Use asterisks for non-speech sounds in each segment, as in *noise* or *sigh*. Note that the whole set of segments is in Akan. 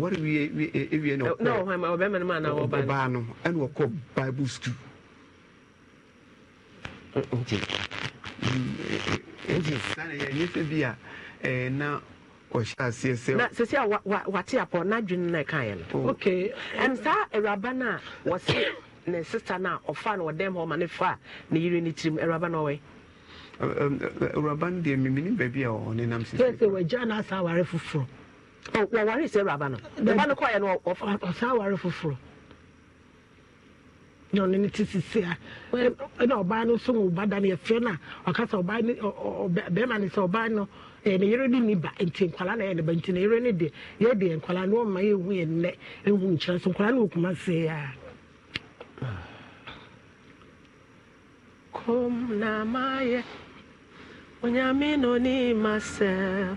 wɔre wie na ɔbaa no ɛne wɔkɔ bible school nti sane yɛnyɛ sɛ bi a na ɔhyɛ aseɛ sɛ sɛsi ah, a wate apɔ n'adwene no ɛkaeɛ no oh. ok ɛn saa awuraba no a wɔse ne sista no a ɔfa no ɔdɛm hɔ ma ne fa ne yere ne tirim awuraba no ɔwɛ awuraba um, um, no deɛ memene baabi a ɔne nam sɛ wagya no asa aware foforɔ wɔware sɛ awuraba no no no foforɔ na ɔno eh, eh, eh, ne te sisi a ɛna ɔbaa no nso da no yɛfrɛ no a ɔka sɛ ɔbaa no no sɛ ɔbaa no ne yere no ni ba nti na ɛyɛ ba nti ne yere no no ɔma yɛhu ɛhu nkyerɛ so no ɔkuma a kom na maayɛ onyame no masɛm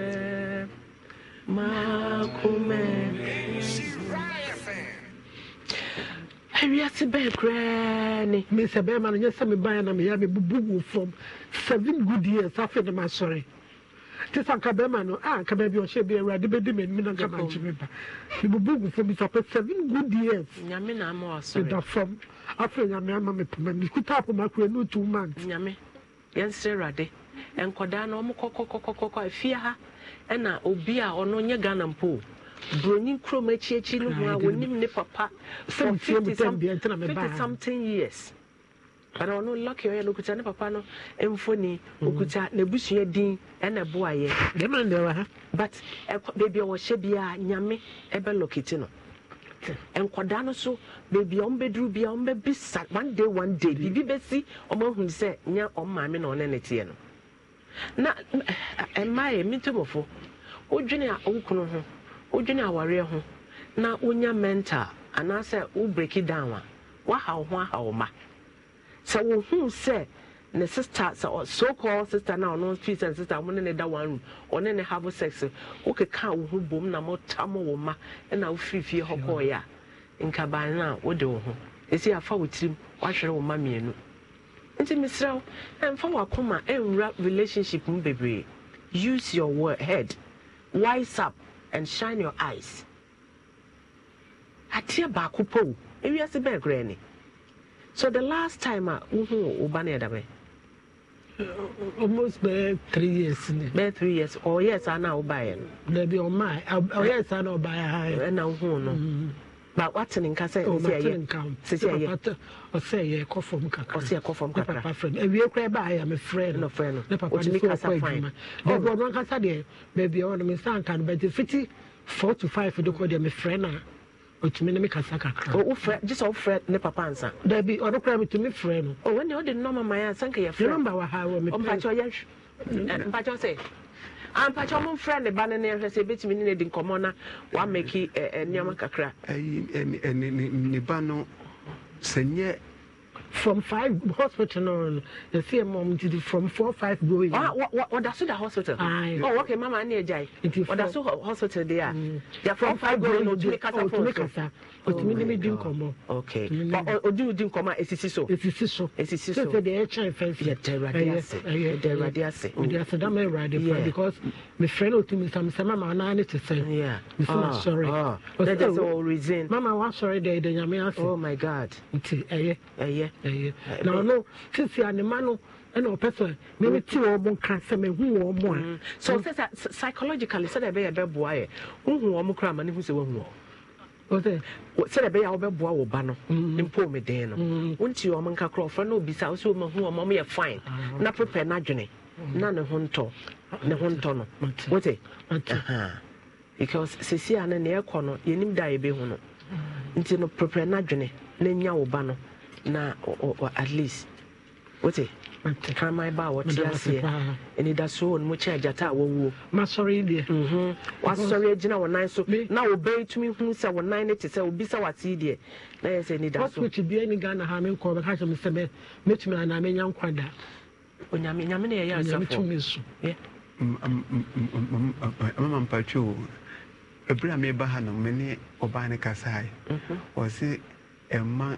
awiase bɛɛ koraa ne mesɛ bɛrima no nyɛ sɛ mebaɛ na meyɛ mebubu wo fam seven good years afei ne masɔre nti sɛ nka bɛrima no a nka baabi ɔhyɛ bi awurade bɛdi m'anim na nka magye me ba mebubu wo fam sɛ seven good years meda fam afei nyame ama me poma mekuta apoma koraa ne two months nyame yɛnsrɛ awurade nkɔdaa no ɔmo kɔkɔkɔkɔkɔ afie ha ɛna obi a ɔno nye ghana mpo buroni kurom akyiakyi no mu a wɔnim ne papa sɛ fifty something years bana ɔno lɔki ɔyɛ no okuta ne papa no mfoni okuta mhm. n'ebusua din ɛna ɛbo ayɛ. dɛm na ndɛwa ha. but ɛkɔ beebi a wɔhyɛ bia nyame ɛbɛ lɔkiti no nkwadaa no so beebi a ɔmbɛduru bia sa one day one day mm. biribi bɛsi ɔmo ahun sɛ nyɛ ɔmo maame na ɔne ne teɛ no. na mmaa eh, eh, yɛ mmitɔmɔfo wodwene a ah, wo oh, kunu ho wodwene awareɛ ah, ho na wonya mental anaasɛ wo down a waha wo ho aha wo ma sɛ wohuu sɛ ne sister sɛ so called sister na ɔno fi sɛ sister mo ne ne da one room ɔne ne have sex wokeka wo ho bom na mota wo ma ɛna wofiri hɔ kɔɔeɛ a ah. nkaban no a wode wo ho ɛsi afa wo tirim wahwere wo ma mmienu nti mesrɛ wo ɛmfa wakoma ɛnwura relationship mu bebree use your word, head wise up and shine your eyes ateɛ baako po ewiase bɛn koraa ni so the last time a wohu wo ba no yɛdabɛ almost bɛɛ three years ni. bɛɛ three years ɔyɛ saa na wobaeɛ no. dabi ɔmaa ɔyɛ saa na ɔbaeɛ ha yɛ. ɛna wohu no. Mm ba wate ne nka sɛ oh, sɛsɛyɛ ɔsɛ yɛ kɔ fam kakrapapa frɛ no awie koraa baayɛ me frɛ no ne papa ne sɛ ɔkɔ adwuma baabi oh. ɔno ankasa deɛ baabi a ɔno me nsa nka no bɛte fiti four to five de kɔ deɛ me frɛ no a ɔtumi ne me kasa kakra oh, wofrɛ gye sɛ wofrɛ ne papa ansa daabi ɔno koraa metumi frɛ no ɔne wode nnɔma maya ɛ ansa nka yɛfrɛ nɔmba wɔ ha wɔ me mpakyɛ ɔyɛ mpakyɛ sɛ ampakyɛ ɔmo mfrɛ ne ba eh, no ne nhwɛ sɛ ebetumi ne di nkɔmɔ na wamɛki nneɛma kakra. ɛyi ɛni ne ba no sɛ from five hospital no no yɛsi yɛ mɔm ti from four five going. wa wa so da hospital. ayi ɔ wɔkɛ mama ani ɛgya yi ɔda so hospital de mm. ya from five going na otumi kasa fɔlɔ so otumi oh ne mi di nkɔmɔ okay odi odi nkɔmɔ a esisi so esisi so esisi so sɛsɛ de ɛkyɛn fɛn fɛ yɛtɛ ɛwurade ase yɛtɛ ɛwurade ase ɔdi ase dama ɛwurade pa because mi frɛ no otumi nsa mi sɛ mama anan ne ti sɛn mi sɛ ma sɔre ɔsɛ o reason mama wa sɔre dɛ ɛdɛ nyame ase oh my god nti ɛyɛ ɛyɛ ɛyɛ na ɔno sisi anima no ɛna ɔpɛ sɛ meme te wɔ mo nka sɛ mehu wɔ mo a so mm. sɛ psychologically sɛdeɛ ɛbɛyɛ bɛboa yɛ wohu wɔ mo koraa ma ne hu sɛ woahu wɔ sɛdeɛ ɛbɛyɛ a wobɛboa wo ba no mm-hmm. mpo me den no wonti ɔm nka korɔ ɔfrɛ no obisa wo sɛ ɔmahu ɔma ɔmyɛ fine ah, na prepare no adwene mm-hmm. na ne ho ntɔ ne ho ntɔ no wote because sesie a no neɛ ɛkɔ no yɛnim da a yɛbɛhu no nti no prepare no adwene na nya wo ba no na at least wote kraman ba a wɔte aseɛ anidasoɔ no mu kyɛ agyata a wɔwuo masɔre deɛ wasɔre agyina wɔ nan so na wɔbɛn tumi hu sɛ wɔ nan no te sɛ obi sɛ wate deɛ na yɛ sɛ anidasoɔkyi bia ni ghana ha menkɔ bɛka kyɛ me sɛ mɛtumi anaa mɛnya nkwa da onyame nyame ne yɛyɛ asafoɔtumi so mama mpatwoo ɛberɛ a meba ha no mene ɔbaa no kasae ɔse ɛma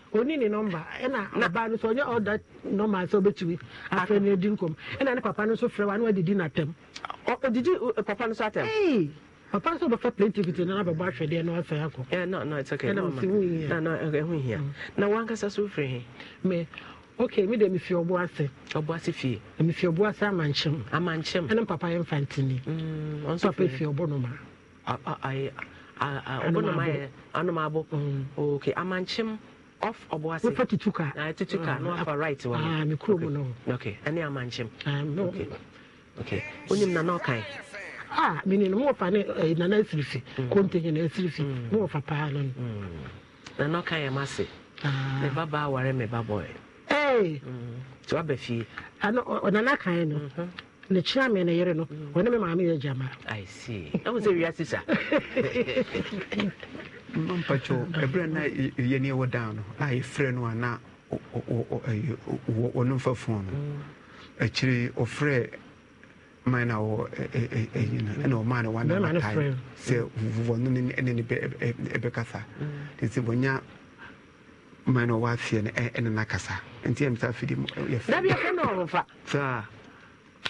oni ni nɔmba ɛna ɔbaa no sɛ ɔnyɛ ɔda nɔmba sɛ ɔbɛtumi afɛ no adi nkɔm ɛna ne papa no nso frɛ wa ne wadidi n'atɛm ɔdidi e, papa no so atɛm papa nso bɛfa plaintivity na nabɛbɔ ahwɛdeɛ na wasɛe akɔ eh, mm. na wankasa so wofiri he me ok mi de mefi ɔbo ase ɔbo ase fie mefi ɔbo ase amankyem amankyem ɛne papa yɛ mfa ntini mm, papa fi ɔbo no ma ɔbo no yɛ anom abo mm. ok amankyem off ɔbɔase wofa tutu ka na ah, tutu ka na wafa right wɔ ah me kurom no okay ɛne amankyem ah no okay okay onim ah, eh, na na ɔkan mm. mm. mm. ah mi ni mo fa ne na na asirifi kontenye mm-hmm. na asirifi mo fa paa no na na ɔkan yɛ ma se me baba aware me baba ɛ ɛy tí wàá bɛ fie ano ɔnana kan no ne kyerɛ me ne yere no ɔne me maame yɛ gyama i see ɛmu sɛ wiase sa mpakyɛw ebre na yɛne ɛwɔ dan no a yɛfrɛ no a na wɔno mfa fon no mm. akyire ɔfrɛ man na wɔ ɛyina ɛna ɔmaa no wanamatae sɛ wɔno ne ne ɛbɛkasa mm. nti wɔnya man na ɔwɔ aseɛ no ɛne nakasa nti ɛmsa afidi yɛfrɛ saa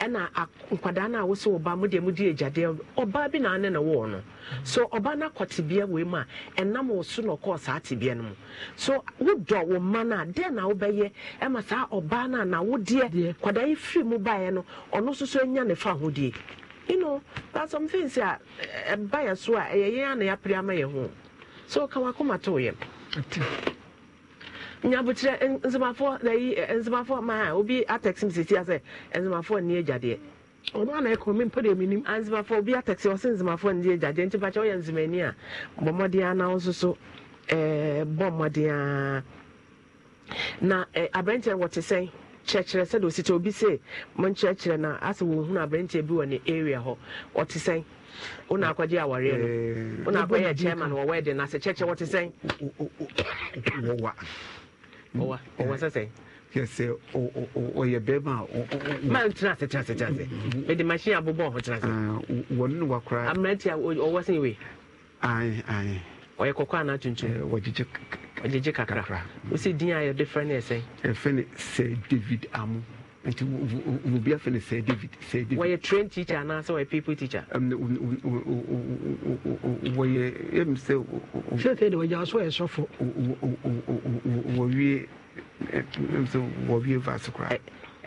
ɛna nkwadaa no a wo sɛ ɔba mu deɛ mudi agyadeɛ ɔbaa bi naane ne wɔɔ no so ɔba no akɔ tebea wei mu a ɛnam wo so na ɔkɔɔ saa tebea no mu so wodɔ wo mma no a dɛn na wobɛyɛ ɛma saa ɔbaa no a na wodeɛ kwadaa yi firi mu baeɛ no ɔno nso so anya ne fa ahodie you know that's some things a ɛba so a ɛyɛ yɛn a na yɛapere ama yɛ ho so ka wakoma to yɛ nyabokyerɛ nsomafoɔ nayi nsomafoɔ ma a obi atɛksi mi sisi asɛ nsomafoɔ ni egyadeɛ ɔno ana ɛkɔ mi mpɛrɛ mi nim nsomafoɔ obi atɛksi ɔsɛ nsomafoɔ ni nti pakyɛ a bɔmɔden anaw soso bɔ mmɔden na ɛɛ abɛnkyɛn wɔte sɛn kyerɛkyerɛ obi se na asɛ wɔn hunu bi wɔ ne area hɔ ɔte sɛn wona akɔgye awareɛ na kyerɛkyerɛ wɔte ɔwa mm-hmm. ah, a tena ase tena ase nti wo bia fɛ no sɛ david sɛ david wɔyɛ train teacher anaasɛ wɔyɛ people teacher wɔyɛ ɛm sɛ sɛsɛ de wɔgya so yɛ sɔfo wɔwie ɛm sɛ wɔwie vase koraa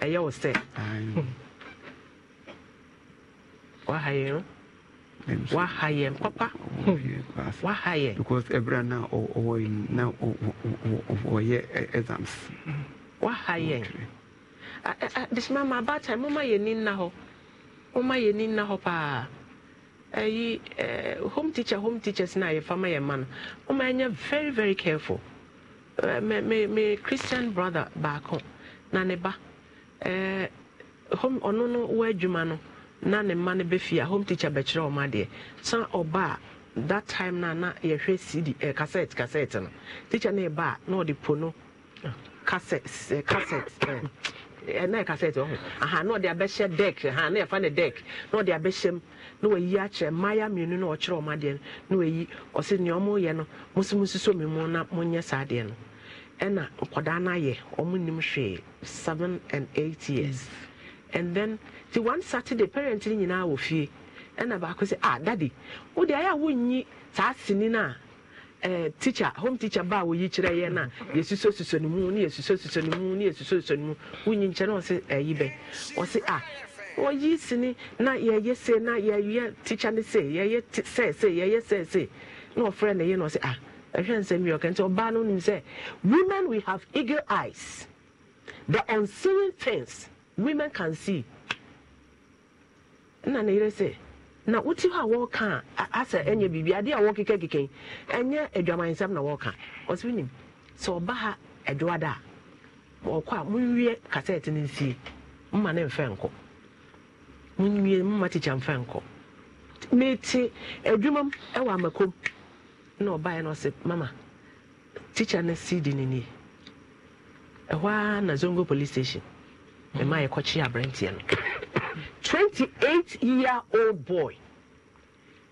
ɛyɛ wo sɛ waha yɛn no waha yɛn papa waha yɛn because ɛberɛ na ɔwɔ na ɔyɛ exams waha yɛn bisima ma abata ma yɛ ni nna hɔ yɛ ni nna hɔ paa ɛyi ɛɛ home teacher home teachers na yɛ fama yɛ ma no yɛ very very careful ɛɛ eh, me me me christian brother baako na ne ba ɛɛ eh, home ɔno oh, no wɔ adwuma no na ne ma no bɛfie a home teacher bɛkyerɛ ɔmo adeɛ san oh, a that time na na yɛhwɛ cd ɛɛ cassette cassette no teacher na na ɔde po no. cassettes eh, cassettes ɛnna eh. eh, cassettes no, aha na ɔde abɛhyɛ deck aha na yɛfa ne deck na ɔde abɛhyɛ mu na wayi akyerɛ mmaayewa mmienu na ɔkyerɛ ɔmo adeɛ no na wayi ɔsi nea ɔmo yɛ no mo nso mo mi mu na mo nyɛ saa adeɛ no ɛnna nkwadaa no ɔmo nim hwee seven and eight years and then ti one saturday parent ni nyinaa wɔ fie ɛnna baako sɛ ah daddy wo de ayɛ a wonyi saa sini naa. Eh, teacher home teacher ba wo yi kyerɛ yɛ na yɛsuso suso ne mu ne yɛsuso suso ne mu ne yɛsuso suso ne mu wonyi nkyɛn na ɔse ɛyi eh, bɛ ɔse a ah, ɔyi sini na yɛyɛ se na yɛyɛ teacher ne se yɛyɛ sɛ se yɛyɛ sɛ se na ɔfrɛ ne yɛ na ɔse a ah, ɛhwɛ nsɛm yi ɔkɛ nti ɔbaa no nim sɛ women we have eagle eyes the unseen things women can see ɛna ne yɛrɛ sɛ. na wote hɔ a wɔreka a asɛ ɛnyɛ biribi adeɛ a wɔkekakeka ɛnyɛ adwamansɛm na wɔreka ɔsɛ wonim sɛ ɔba ha adwoada a wɔkɔ a monwie kasɛte no nsie mma ne mfɛ nkɔ monwie mma tikya mfɛ nkɔ mete adwuma m ɛwɔ amakom na ɔbaeɛ no ɔsɛ mama tikya no di no nie ɛhɔ a na zongo police station mema yɛkɔkye aberanteɛ no 28 year old boy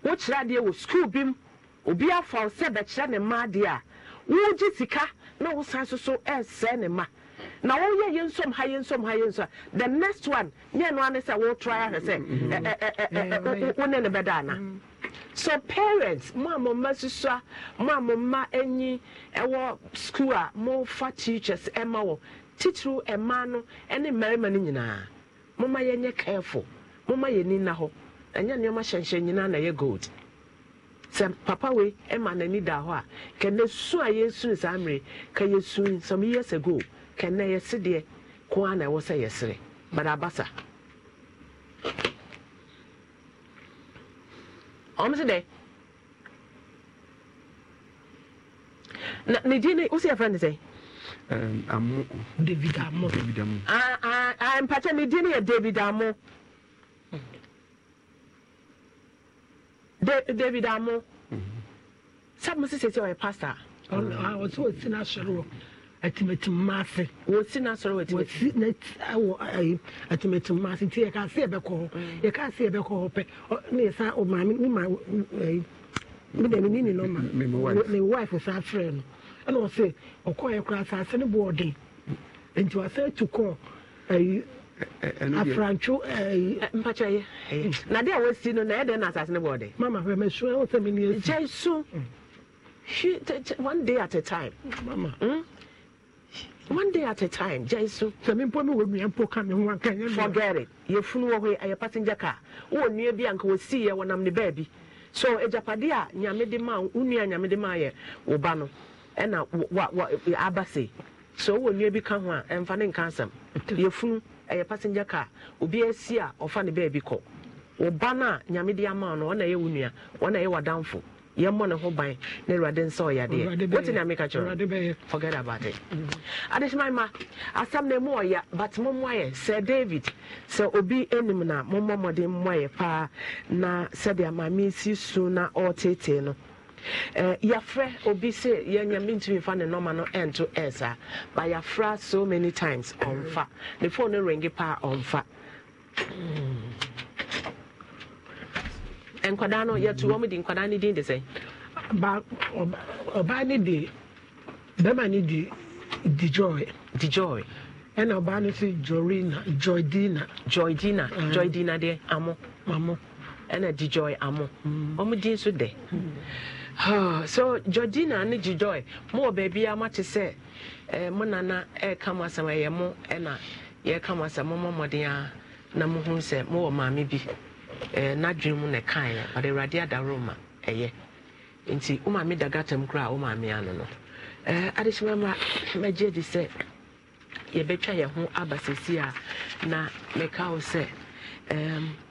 wokyerɛ adeɛ wɔ sukuu bi mu obi afa wo sɛ bɛkyerɛ ne mma adeɛ a wogye sika na wosan so so ɛresɛe ne ma na wɔyɛ yɛ nsom ha yɛ nsom ha yɛ nsom the next one nyɛ no ane sɛ wɔtry ahwɛ sɛ mm-hmm. mm-hmm. wo ne ne bɛda ana mm-hmm. so parents mo a mo mma susua mo a mo mma anyi ɛwɔ sukuu a mofa teachers ɛma wɔ titiriw ɛmaa no ɛne mmarima no nyinaa momma yɛnyɛ careful momma yɛni nna hɔ ɛnyɛ nneɛma hyɛnhyɛn nyinaa na ɛyɛ gold sɛ papa wei ma n'ani da hɔ a kɛnɛ su a yɛsu saa mmere ka yɛsu some years ago kɛnɛ yɛse deɛ ko a na ɛwɔ sɛ yɛsere but abasa ɔm dɛ na ne din ne wo sɛ ne sɛ amu david amu david amu mpakyɛ ne din yɛ david amu david amu mhm. sábà mo sisi ɔyɛ pastor. ɔsɛ wɔsi n'asɔre wɔ atimatim maase. wɔsi n'asɔre wɔ atimatim. wɔsi n'awɔ atimatim maase nti yɛ kaa se ɛbɛkɔ hɔ yɛ kaa se ɛbɛkɔ hɔ pɛ ne yɛ sa ɔmaami ne ma ɛyi mi eh, dɛm ni ni nɔma ne wife sa afrɛ no. ɛna ɔsɛ ɔkɔɔyɛ kora asase no bɔ ɔden nti wasɛ atu kɔɔ ayi afrantwo ayi. mpakyɛ yɛ na de a wɔsi no na yɛ dɛ na asase no bɔ ɔden. mama hwɛ mɛ sun ɛwɔ sɛ mi ni esu. jɛ sun hwi one day at a time. mama. Mm? one day at a time jaisu. sami mpɔ mi wo nua mpo ka mi ho anka nye nua. forget it yɛ funu wɔ hɔ yi ayɛ passenger car wɔn nua bi anka wɔsi yɛ wɔnam ne baabi so ejapade a nyame de ma wo nua nyame de ma yɛ wo ba no. ɛna aba se sɛ ɔwɔ nnua bi ka ho a ɛmfa ne nka asɛm *laughs* yɛfunu ɛyɛ passenger car obi asi a ɔfa ne baabi kɔ wo ba no a nyame de ama no ɔna ɛyɛ wo nua ɔna ɛyɛ w'adamfo yɛmmɔ ne ho ban na awurade nsa ɔyadeɛ wote nea meka kyerɛ forget about it mm. adehyemai ma asɛm no ɛmu ɔya but mommoayɛ sɛ david sɛ obi anim na mommɔ mmɔden mmoayɛ paa na sɛdeɛ maame si su na ɔretetee no Eh, yɛafrɛ obi sɛ yɛnyɛ mentumi fa ne nɔma no ɛnto ɛɛsaa ba yafra so many times ɔmfa ne phone no rengi paa ɔmfa mm. nkwadaa no yɛto wɔm mm-hmm. di, nkwadaa no din de sɛ ɔbaa no de bɛma no di dijoy, dijoy, joy ɛna ɔbaa no so jorina joydina joydina eh. joydina deɛ amo amo ɛna dijoy amo mm. ɔmo din so dɛ *sighs* so georgina ne gyejoy mowɔ baabi a mate sɛ mo nana ɛka mo asɛm ɛyɛ mo ɛna yɛka mo asɛm moma mmɔden a na mohu sɛ mowɔ maame bi n'adwene mu na ɛkaeɛ ɔde awurade adaworo ma ɛyɛ nti wo maame da gatam koraa wo maame ano no adehyema ma magye di sɛ yɛbɛtwa yɛn ho aba sesi a na meka wo sɛ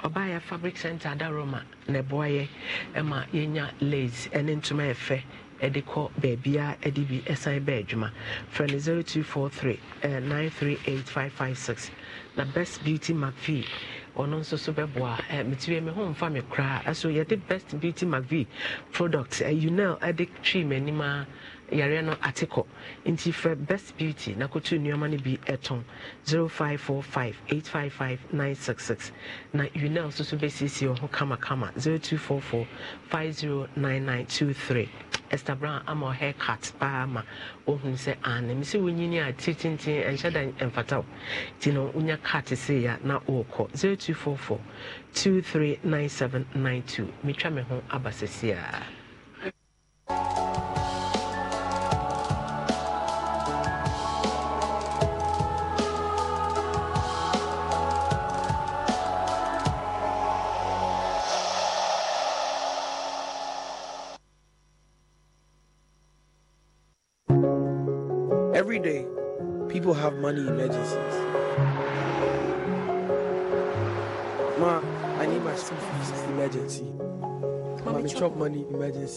ɔbaayɛ fabric center adaroma na ɛboa yɛ ɛma yɛnya lace ɛne ntoma ɛfɛ ɛde kɔ baabia ɛde bi ɛsan bɛ adwuma frɛ no 0243 938556 na best beauty mcvie ɔno nso so bɛboa metiri me ho mfa me koraa ɛso yɛde best beauty mcvie products ɛyunel ɛde twee m'anim a yare no ate kɔ nti frɛ best beauty na kɔtu nneɛma no bi six six na unel nso so bɛsiesie wɔ ho kamakama 0244509923 Esther Brown ama ɔhair cut paa ma ohun sɛ ana mi sɛ wonyini a titintini ɛnhyɛ da ɛmfata wo nti no wonya cut ya na zero two two four four three nine 0244 239792 metwa me ho aba ya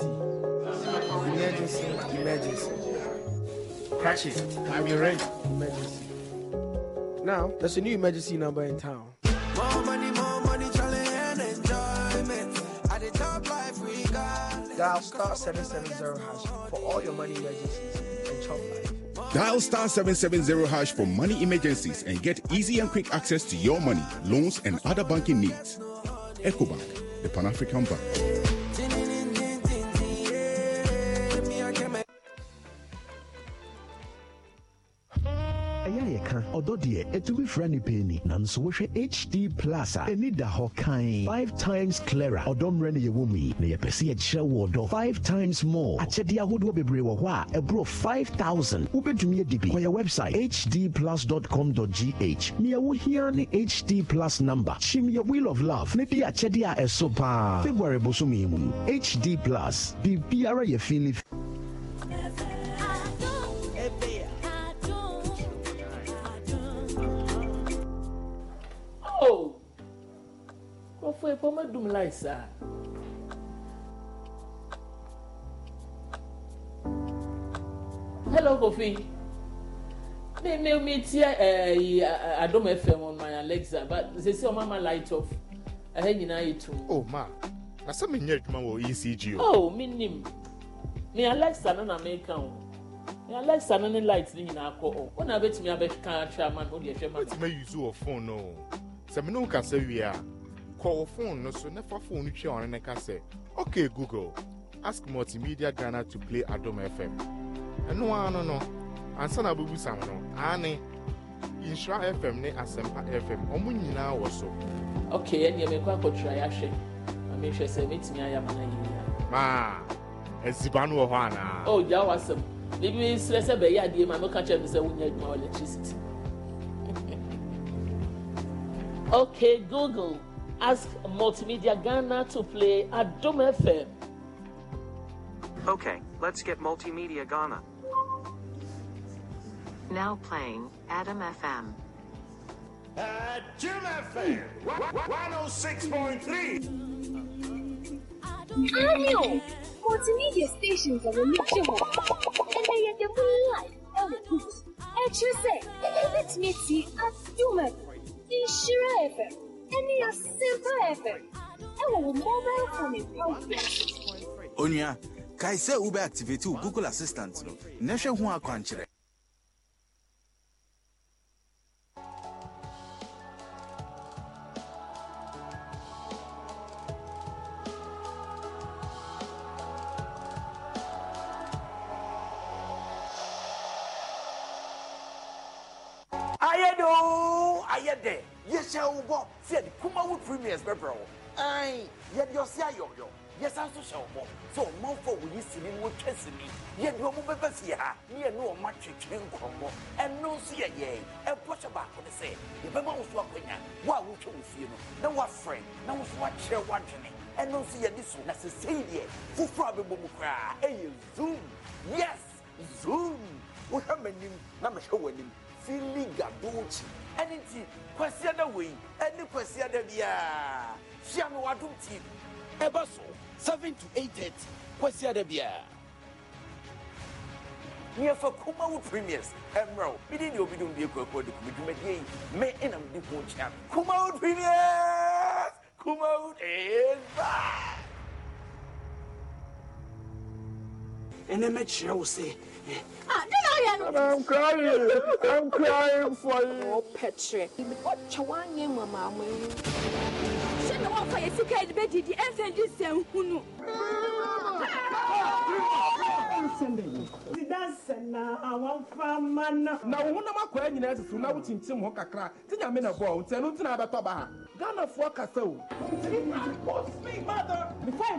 emergency. Emergency, emergency. Catch it. I'm your ready. Emergency. Now, there's a new emergency number in town. More money, more money, challenge and enjoyment. At the top life we got. Dial star 770 hash for all your money emergencies and chop life. Dial star 770 hash for money emergencies and get easy and quick access to your money, loans, and other banking needs. EcoBank, the Pan African Bank. ɔdɔ deɛ ɛtumi fira nipa ni nanso wohwɛ hd plus a ɛni da hɔ kan five times clearer ɔdɔ mmerɛ ne yɛwɔ mu yi na yɛpɛ sɛ yɛkyerɛ wɔ ɔdɔ five times more akyɛdeɛ ahodoɔ bebree wɔ hɔ a ɛborɔ five thousand wobɛtumi adi bi kɔyɛ website hdplus.com.gh nea wohia ne hd plus number kyim yɛ wheel of love ne di akyɛdeɛ a ɛso paa february bosom mu hd plus biribiara yɛ fili. ɔfɔ yi pɔ mɛdum lai saa hello kofi mi mi mi ti ɛɛyi eh, eh, adum fm on my alexa but sisi ɔmo ama light off ɛhɛ nyinaa yi tum. o ma na sɛ mi nyɛ adwuma wɔ ecg o. o oh, mi nim mi alexa no na mi ka o mi alexa no ne light ne nyinaa kɔ o wɔn na bɛtumi abɛka atwa ama no o deɛ ɛhwɛ ma no. o ti ma yi zu wɔ phone no sɛ mi n'o kasa wie a. kọwọ fon no so na fa fon no twia ɔno ne ka sɛ ok google ask multimedia ghana to play adom fm ɛno ara no no ansa eh, na abubusam no ane nhyira fm ne asɛmpa fm ɔmo nyinaa wɔ so ok ɛneɛ mekɔ akɔtwira yɛahwɛ ma mehwɛ sɛ mɛtumi ayɛ ama no yɛyia maa asiba no wɔ hɔ anaa o gya wɔ asɛm bibi serɛ sɛ bɛyɛ adeɛ ma meka kyerɛ me sɛ wonya adwuma wɔ electricity *laughs* ok google Ask Multimedia Ghana to play at Dome FM. Okay, let's get Multimedia Ghana. Now playing Adam FM. At Jim FM, 106.3. Daniel! Multimedia stations are a reliable, and they are the life elegant. And you say, let me see at Jim FM, Ishira FM. any a simple effort. Ẹ̀wọ̀n Onua, kae sɛ wobɛ wo Google Assistant no, na hwɛ ho akwankyerɛ. ayɛ do yɛhyɛ wo bɔ sɛ yɛde kumawo premiers bɛbrɛ wo ɛn yɛde ɔse ayɔyɔ yɛsan so hyɛ wo bɔ sɛ ɔmanfo a wɔyi sini no wɔtwa sini yɛde ɔmo bɛba fie ha ne yɛne ɔma twetwere nkɔmmɔ ɛno nso yɛ yɛn ɛbɔ hyɛ baako ne sɛ yɛbɛma wo so akɔnya wo a wotwa wo fie no na woafrɛ na wo so wakyerɛ woadwene ɛno nso yɛde so na sesei deɛ foforɔ a bɛbɔ mu koraa ɛyɛ zoom yes zoom wohwɛ m'anim na mehwɛ w'anim filiga donkyi ɛne nti kwasi ada wei ɛne the ada biara fia no wadum team ɛba so seven to eight Question the ada biara nneɛfa kuma wo premiers ɛmmerɛ wo mede ne obidom de akuakoa de kumedwumadeɛ yi me ɛnam de ho kyea kuma wo premiers kuma wo is back ɛnɛ mɛkyerɛ wo sɛ Ah, I'm crying. I'm crying for you. Oh, Petre. What Chawan Yama, Mamma? Send the one for your sick head, Betty, the answer is Sam Hunu. na wo honam akɔa nyinaa susu na wokyinkyim hɔ kakra nti nyame na bɔɔ nti ɛno nti na abɛtɔ ghanafoɔ kasa o Before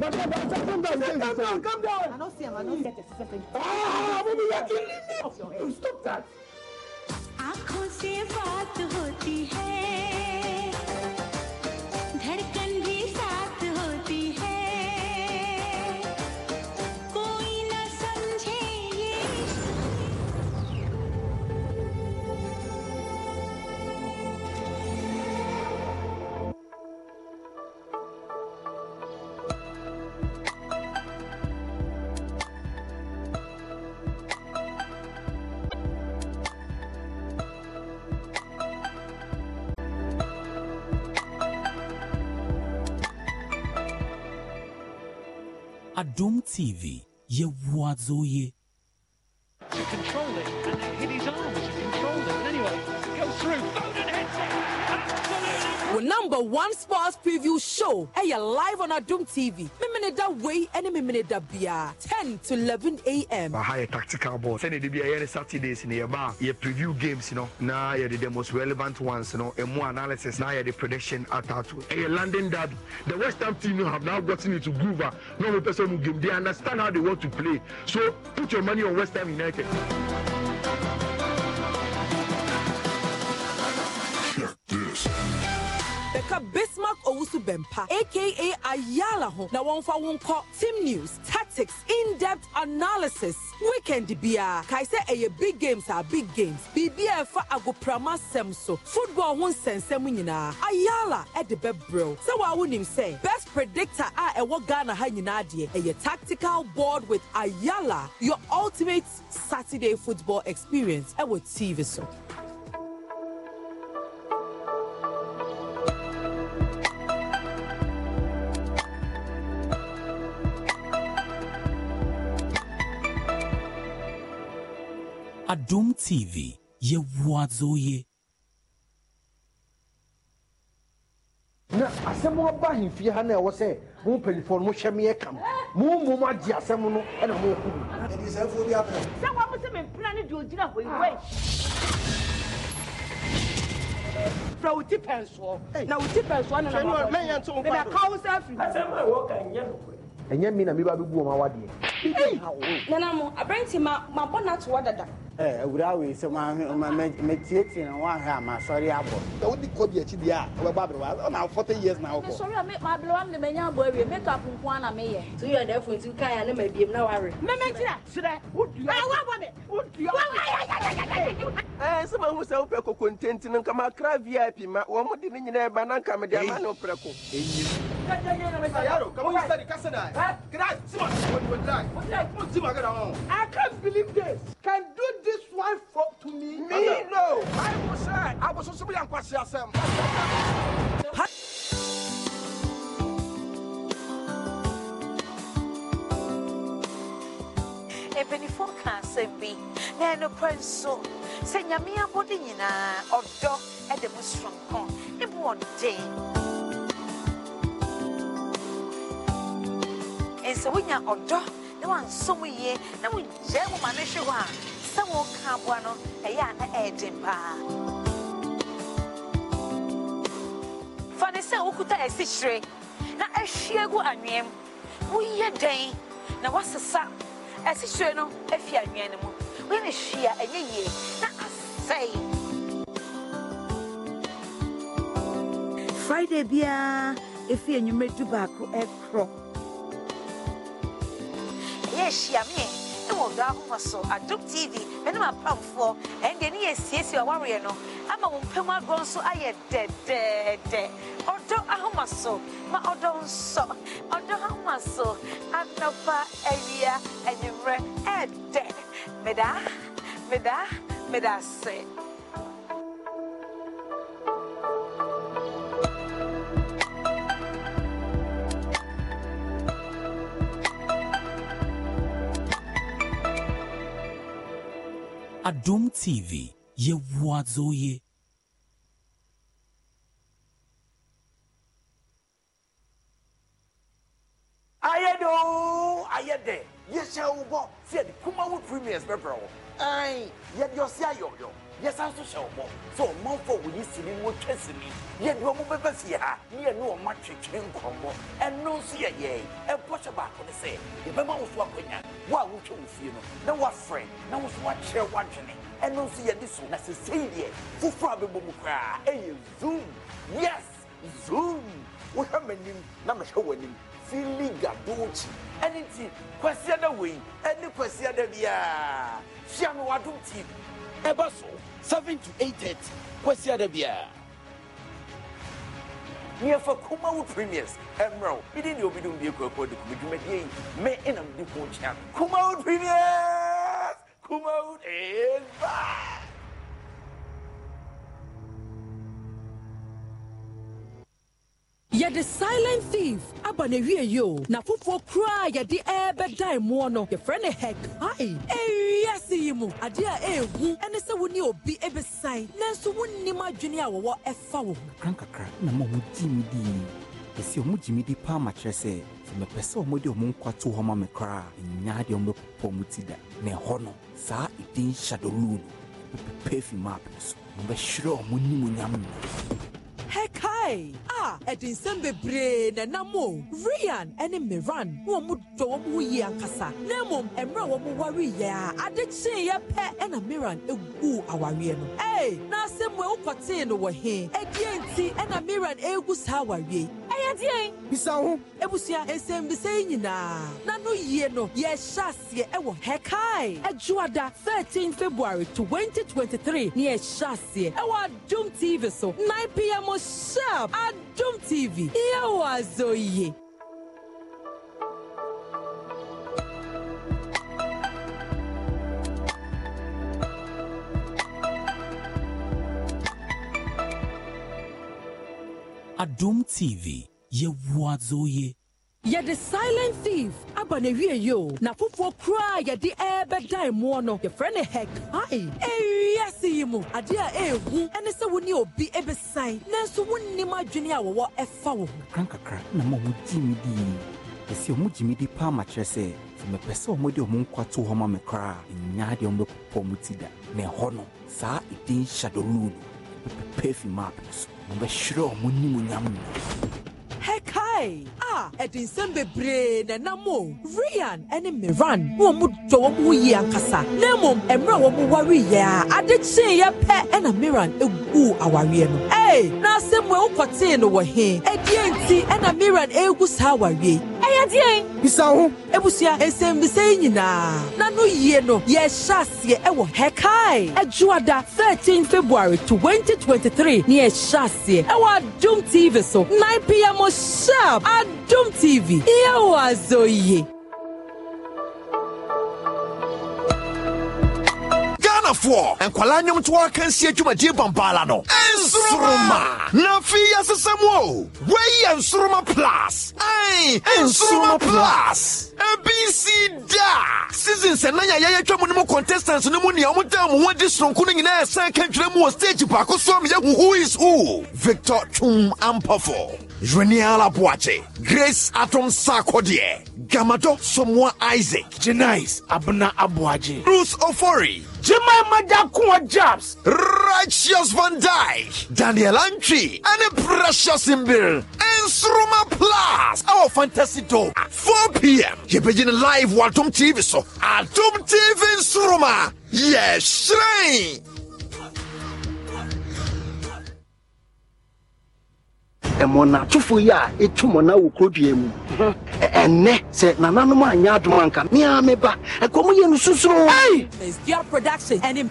come down, come down, I don't see him, I don't get it. Ah, baby, you're killing me. Stop that. आंखों से बात होती है Doom TV yewazoye. You control it, and then hit his arm arms. You control it. Anyway, go through. Oh! wo number one sports preview show Hey, you're live on adum tv mimini da wei ɛne mimini da bia ten to eleven a.m. aha yɛ tactical board. Send it to a yɛ ne saturdays in yɛ ba yɛ preview games you know. Now you are the most relevant ones you know. no more analysis Now you are the prediction at atato ɛyɛ landing that the west ham team you have now gotten into groove Normal person who game they understand how they want to play so put your money on west ham united. Check this. Beka bismark owusu bɛmpa aka ayala ho na for one call team news tactics in-depth analysis weekend Bia. Kaise sɛ ɛyɛ big games are big games Bia for ɛfa agoprama semso. so football ho nsɛnsɛm nyinaa ayala ɛde I wouldn't wonim say. best predictor a ɛwɔ ghana ha nyinaa deɛ ɛyɛ tactical board with ayala your ultimate saturday football experience would tv so Adum TV yɛwoadzoyɛ na asɛm aba ahemfie ha na ɛwɔ sɛ mo mpanyifoɔ no mohwɛ meyɛ kam mo mmom agye asɛm no ɛna moyɛku mu sɛ wɔmo sɛ mempena no de ogyina hɔ iwe frɛ wo ti pɛnsoɔ na wo ti pɛnsoɔ no nmɛka wo sɛ afiri ɛnyɛ me na meba bɛbu ɔma wadeɛ nanamo aberɛnti mabɔ no atoɔ dada awura wei sɛ mɛtietie no woahwɛ a masɔre abɔ wode kɔ bi akyi deɛ a wobɛbɔ aberɛwa na 40 years na wokɔ sɔre a maberɛwa m de manya abɔ awie makeup nko a na meyɛ so yɛ dɛ fontu kae a ne mabiem na ware memɛkyira serɛ wodua wobɔ me wodua Eh, sɛ mahu sɛ wopɛ koko ntenti no nkama kra vip ma wɔ mo de ne nyinaa ba na nka mede ama ne woprɛ ko I can't believe this. Can do this one for to me? Me no. I was uh, I was supposed to be on Kwasi Asem. asɛm bi na ɛno pɛ nso sɛ nyame abɔde nyinaa ɔdɔ ɛde mu soronko ne bo ɔden ɛnsɛ wonya ɔdɔ na wansɔ mu yie na wogyae mu ma no hwe hɔ a sɛ woka aboa no ɛyɛ a na ɛyɛden paa fa ne sɛ wokuta asikyire na ahwie gu anweɛm woyɛ dɛn na woasesa ɛsihyire no efi anwea no mu wɔn ani hyia ɛnyɛ yie na asɛe. friday biara efi enyimire baako ɛkorɔ ɛyɛ ehyia mi ɛwɔ ɔdɔ ahoma so adum tv mɛne ma pamfoɔ ɛndeɛ ne yɛ siesie ɔwareɛ no ama mo mpɛm agorɔ nso ayɛ dɛdɛɛdɛ ɔdɔ ahoma so ma ɔdɔ nsɔ ɔdɔ ahoma so anɔpa awia anwummerɛ ɛɛdɛ meda meda meda ase Adum TV yɛwoa dzo ye. ayɛ do ayɛ dɛ yɛhyɛ wo bɔ sɛ yɛde kumawo premiers bɛbrɛ wo ɛn yɛde ɔse ayɔyɔ yɛsan so hyɛ wo bɔ sɛ ɔmanfoɔ wɔyi sini wɔtwa sini yɛde ɔmo bɛbɛ fie ha ne yɛne ɔma twetwe nkɔmmɔ ɛno nso yɛyɛe ɛbɔhyɛ baako ne sɛ yɛbɛma wo so akɔnya wo a wotwa wo fie no na woafrɛ na wo so woakyerɛ woadwene ɛno nso yɛde so na sesei deɛ foforɔ a bɛbɔ mu koraa ɛyɛ zoom yes zoom wohwɛ m'anim na mehwɛ w'anim fili gadokyi ɛne nti kwasia da wei ɛne kwasia da biara hyia me wadom tv ɛbɛ so 7 to 8 kwasia da biara neɛfa kuma wo premiers ɛmmerɛ wo mede neɛ obidom bie kurakura de kɔmi dwumadeɛ yi me ɛnam de ko kyea kuma wo premiers kuma wo ɛba yɛde silent thief aba ne wie yi o na foforɔ koraa yɛde ɛɛbɛda mmoɔ no yɛfrɛ ne hɛk hae ɛwiase yi mu adeɛ a ɛɛhu ɛne sɛ wo ne obi ɛbɛsan nanso wonnim adwene a wɔwɔ ɛfa wo ho krankakra na ma wɔgyi me dii ɛsi ɔmo gye me di paa ma kyerɛ sɛ sɛ mepɛ sɛ ɔmo de ɔmo nkwa to hɔ ma me koraa ɛnya deɛ ɔmo mu ti da na ɛhɔ no saa ɛdin hyadoluu no bɛpepɛ afi maapɛ so ɔmo bɛhwerɛ ɔmo no hekae a ah, ɛde nsɛm bebree na nam o rian ne miran wɔn mo dɔ wɔn ho yie ankasa na mmom mmerɛ a wɔn ware yɛ a ade kyeeɛ pɛ ɛna miran egu awareɛ no ee na asɛm wo ekɔtee no wɔ he ɛdeɛ nti ɛna miran egu saa awareɛ ɛyɛ deɛ bisa ho ebusua nsɛmbisa yi nyinaa na no yie no yɛhyɛ aseɛ ɛwɔ hekae ɛdwoada thirteen february twenty twenty three ne yɛhyɛ aseɛ ɛwɔ adum tv so nine pm sharp adum tv yewazoye. adum tv yewazoye yɛde silent thief aba ne wie yi o na foforɔ koraa yɛde ɛɛbɛdan moɔ no yɛfrɛ ne hɛkae ewiase yi mu adeɛ a ɛɛhu ɛne sɛ wo ne obi ɛbɛsan nanso wonnim adwene a wɔwɔ ɛfa wo ho krankakra na ma wɔgye me dii ɛsɛ ɔmo gye me di paa ma kyerɛ sɛ sɛ mepɛ sɛ ɔmo de ɔmo nkwa to hɔ ma me koraa ɛnya deɛ ɔmo bɛpopɔ mo ti da na ɛhɔ no saa ɛdin shadow rule bɛpɛpɛ afi map no so ɔmo bɛhwerɛ ɔmo nimonyam no hɛkae Hey, ah, ɛdi nsɛm bebree na ɛnam o. Ryan ɛne Miran na wɔn dɔ wɔn ho yie ankasa. Na mmom, mmerɛ a wɔn wari yɛ a, ade kyee yɛ pɛ ɛna Miran egu awareɛ no. Hey, na asɛm e wo ekɔtee no wɔ he? Ɛdeɛ nti ɛna Miran egu saa awareɛ yi ayɛdeɛn bisa ho ebusua nsɛmbisa yi nyinaa na yie no yɛhyɛ aseɛ ɛwɔ hɛkae adwoada 13 february 2023 ne yɛhyɛ aseɛ ɛwɔ adom tv so 9 pm sharp adom tv yɛwɔ azɔ yie adwumayɛfoɔ nkwadaa nnwomtoɔ akansie dwumadie bambaala no nsoroma na afei yɛasesa mu o wɔyɛ nsoroma plus ɛn nsoroma plus abc da seasons ɛnan a yɛyɛtwa mu no mu contestants no mu nea ɔmodaa mo ho adi sononko no nyinaa ɛsan ka dwerɛ mu wɔ stage baako so a meyɛ who is who victor twum ampafo Jwenia Lapuache, Grace Atom Sarkodie, Gamato Somoa Isaac, Janice Abna Abuaji, Bruce Ofori, Jemai Madakuwa Jabs, Righteous Van Dyke, Daniel Antri, and Precious Imbil, and Sroma Plus, our fantasy dog, 4 p.m. You're live Waltum TV, so Atom TV in Sroma, yes, Shrine. ɛmɔnatofo yi a ɛtu mɔna wɔ kurodua mu ɛnɛ sɛ nananom anyɛ adom anka mea meba ɛkɔm yɛ no susuro production ɛne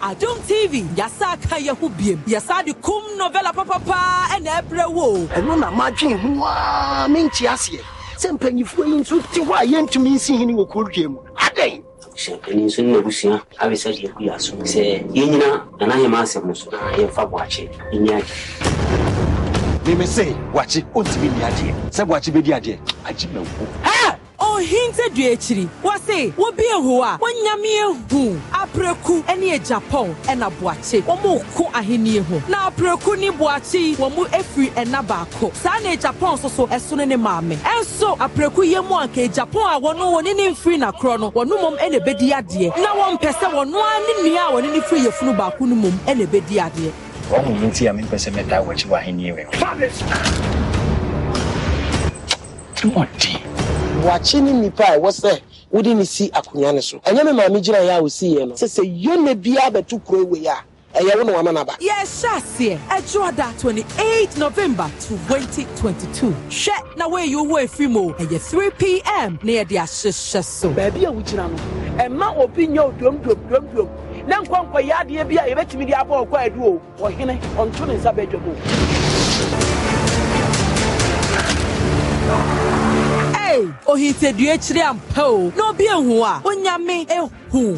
tv yɛsa ka biem yɛsa kum novela papapaa ɛna ɛbrɛ wo ɛno na madwen ho a menkye aseɛ sɛ mpanyifoɔ yi nso te hɔ a yɛntumi nsi hene wɔ kurodua mu adɛn hyɛmpanin so ne abusua abɛsa deɛ agu yɛ aso sɛ yɛnyina nana yɛma asɛm so na yɛmfa boakye ɛnyɛ agye mímí sè wàkyi ó ti mi ní adeɛ sɛ wàkyi bɛ di adeɛ agye mɛ ɔhinte dua wɔse wobi a wɔnyame ehu apreku ne japan ɛna boakye wɔn ko ahenni ho na apreku e ne boakye yi wɔn mu efiri ɛna baako saa na japan soso ɛsono ne maame ɛnso apreku yɛ mu anka japan a wɔn wɔn ne mfiri na korɔ no wɔn mom ɛna ebedi adeɛ na wɔn mpɛ sɛ wɔn noa ne nua a wɔn ne ne firi yɛ funu baako no mom ɛna ebedi adeɛ wɔn mu nti a mi mpɛ sɛ mɛ da wɔkyi wɔ ahenni wɛ. ɔden. wɔakye ne nipa a ɛwɔ sɛ wode ne si akonnwa ne so ɛnyɛ me maame gyina yɛ a ɔsi yɛ no sɛ sɛ yɛna biara bɛto kuro wei a ɛyɛ wo na wɔama naba yɛhyɛ aseɛ ɛdwoada 28 november 2022 hwɛ na woayi wo hɔ ɛfiri mu ɛyɛ 3pm na yɛde ahyehyɛ so baabi a wogyina no ɛma obi nyɛ odomdomdomdom na nkɔnkɔyɛ adeɛ bi a yɛbɛtumi de abɔ ɔkɔ adu o ɔhene ɔnto ne nsa bɛdwam o ohintadua akyiri ampa o na obi ehu a onyame ehu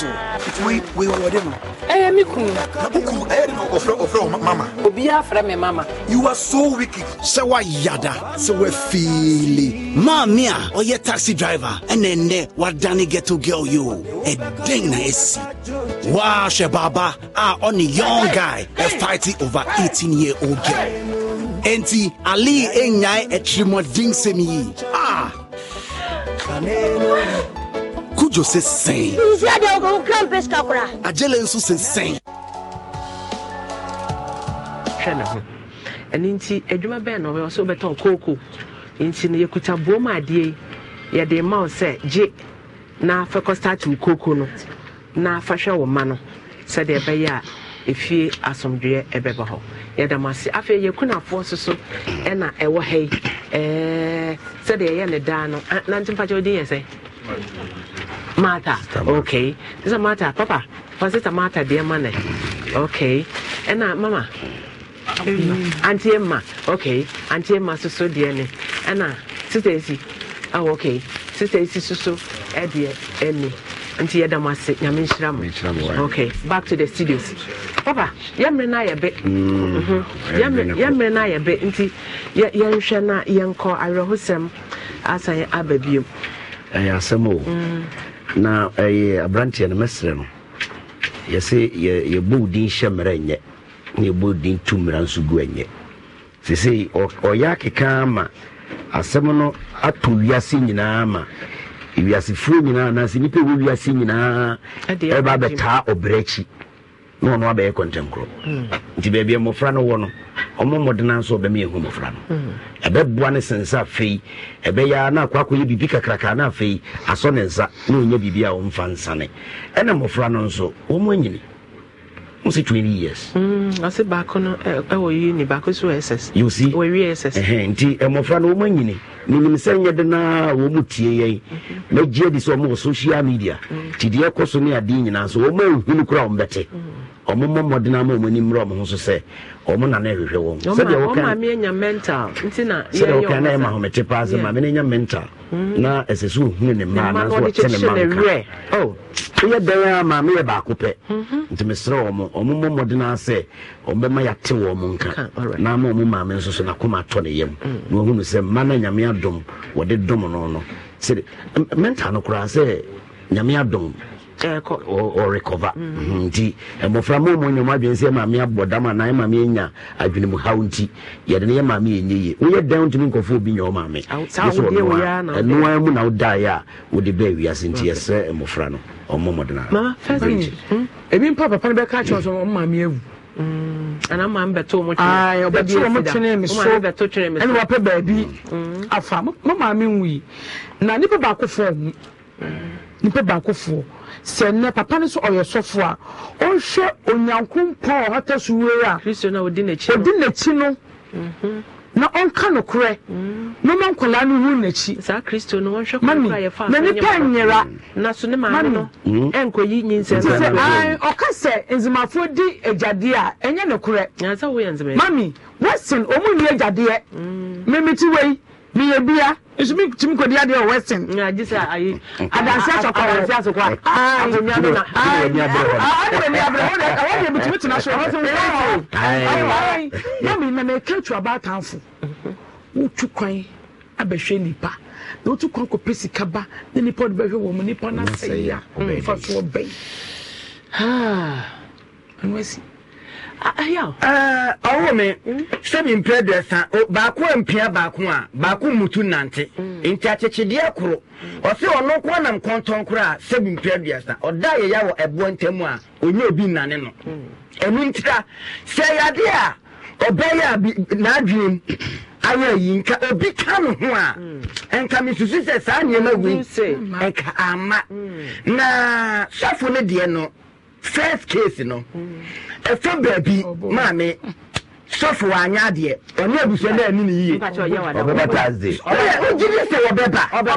so wei wei wɔwɔde no ɛyɛ me kunu na wo kunu ɛyɛ de no ɔfrɛ ɔfrɛ wɔ mama obiaa frɛ me mama you are so wicked sɛ woayada sɛ woafiili maa me a ɔyɛ taxi driver ɛnɛ nnɛ woadane ghetto girl yo ɛdɛn na asi woahwɛ baaba a ɔne young guy fighting over eighteen year old girl enti ali ɛnyae atirimmɔdensɛm yi a ah kodwo sɛ sɛn nsiadeɛ wokɔ wo kra mpɛ sika kora agyele nso sɛ sɛn hwɛ ne ho ɛno nti adwuma bɛɛ na ɔbɛwɔ sɛ wobɛtɔn kooko nti no yɛkuta boom adeɛ yɛde ma wo sɛ gye na fa kɔstate wo kooko no na fa hwɛ wo ma no sɛdeɛ ɛbɛyɛ a efie asomdwoeɛ ɛbɛba hɔ yɛda mo ase afei yɛkunafoɔ so so ɛna ɛwɔ ha yi ɛɛ sɛdeɛ ɛyɛ ne daa no na nti mpakyɛ yɛ sɛ Mata. Okay. This is Mata. Papa, was it a Mata, dear money? Okay. And now, Mama. Auntie Emma. Okay. Auntie Emma, so so dear. And now, Sister Isi. Oh, okay. Sister Isi, so so. Eddie, Emmy. nti yɛda mo ase nyame nhyira mo eh. okay back to the studios papa yɛmmerɛ no ayɛ be yɛmmerɛ no ayɛ be nti yɛnhwɛ na yɛnkɔ awerɛhosɛm asan aba biom ɛyɛ eh, asɛm o mm na ɛyɛ aberanteɛ no mɛsrɛ no yɛsɛ yɛbɔ wo din hyɛ mmerɛ nyɛ na yɛbɔ wo din tu mmara nso gu anyɛ sesei ɔyɛ akeka ama asɛm no ato wiase nyinaa ma wiasefoɔ nyinaa anaasɛ nnipa ɛwɔ wiase nyinaa ɛba bɛtaa ɔbrɛ akyi na ɔno abɛyɛ kɔntɛnkorɔ nti baabi a mmɔfra no wɔ no ɔmo mmɔdena nso ɔbɛma yɛhu mmɔfra no mm. ɛbɛboa ne sensa afei ɛbɛyɛ a na akɔ akɔyɛ biribi kakraka na afei asɔ ne nsa na ɔnya biribi a ɔmfa nsane ɛna mmɔfra no nso wɔn anyini mo say twenty years. ɔsɛ baako no ɛwɔ yi ni baako so ss. you see wɔwi ss. Eh, eh, nti eh, mmɔfra no wɔn anyini ninim sɛ nyɛ de na wɔn mu tie yɛn mm-hmm. na gye di sɛ wɔn wɔ social media mm. ti deɛ kɔ so ne adeɛ nyinaa so wɔn a ehunu kura wɔn bɛte wɔn mm. mmɔmɔden ama wɔn anim mmerɛ wɔn ho so sɛ ɔmo na na ɛhwehwɛ wɔn sɛdeɛ wɔka na ɛma homete paa sɛ maame no nya mental na ɛsɛ sɛ ɔhunu ne mmaa nanso wɔte ne mma nka oh, woyɛ dɛn a maame yɛ baako pɛ mhm. nti meserɛ ɔmo ɔmo mmɔ mmɔden a sɛ ɔmbɛma yɛate wɔ mo nka na ama ɔmo maame nso so nakoma atɔ ne yam mm. na ɔhunu sɛ mma no nyame adom wɔde dom no no sɛde mental no koraa sɛ nyame adom ɔrecover mhm, nti mmɔfra ma ɔmu adwene sɛ maame abɔ dam anaa maame anya adwene mu haw nti yɛde no yɛ maame ɛnyɛ ye woyɛ dan obi ɛnoa mu na wodaeɛ a wode bɛɛ wiase nti yɛsrɛ mmɔfra no ɔmmɔ mmɔdena hmm? papa no bɛka kyerɛ sɛ awu ana maa mi so baabi hmm. afa mo nwi na nipa baako fɔ hmm. nipa baako fɔ sɛ nnɛ papa no so ɔyɛ sɔfo a ɔnhwɛ onyanko mpa a ɔhata so wei a ɔdi n'akyi no mhm. na ɔnka no korɛ mhm. na ɔma nkwadaa no hu n'akyi mami na nipa nyera mami nti ɔka sɛ nzimafoɔ di agyadeɛ a ɛnyɛ no korɛ mami western ɔmu nni agyadeɛ mmemmeti wei meyɛ bia nso mi tumi kɔ di adeɛ wɔ western. ǹyà jí sẹ ayi adansi asokɔ wɔ adansi asokɔ ayi ayi ayi ayi ayi ayi ayi ayi awọn yẹ bi tumi tena so wọn sọ wọn ayi yẹmi na na eke tu aba atanfo wotu kwan abɛhwɛ nipa na wotu kwan kɔ pe sika ba na nipa ɔde bɛhwɛ wɔn mu nipa na sɛ ya ɔbɛfa so ɔbɛn ɛnu ɛsi. ɔwɔ eh, me hmm? sɛ mempɛ dɛ sa baako mpia baako a baako mmutu nante hmm. nti akyekyedeɛ koro ɔse ɔno nko nam kɔntɔn koro a sɛ mempɛ aduasa ɔda yɛya wɔ ɛboɔ ntam a ɔnyɛ obi nnane no hmm. ɛno ntira sɛ yɛade a ɔbɛyɛ a n'adwenem ayɛ yi nka obi ka no ho a nka mesusu sɛ saa nneɛma wei nka ama na sɔfo no deɛ no first case you no ɛfa baabi maame sɔfo anya adeɛ ɔne abusua no ani ne yie ɔbɛba tasde wogye di sɛ wɔbɛba wogye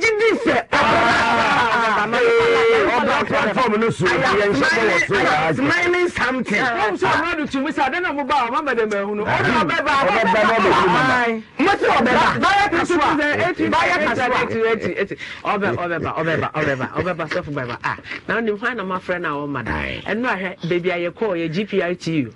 di sɛ ɔbɛba platform no so yɛnhyɛmane ne something mɛsɛ ɔbɛba na wonim hwan na mafrɛ no a wɔma da ɛno ahwɛ baabi a yɛkɔɔ yɛ gpr tu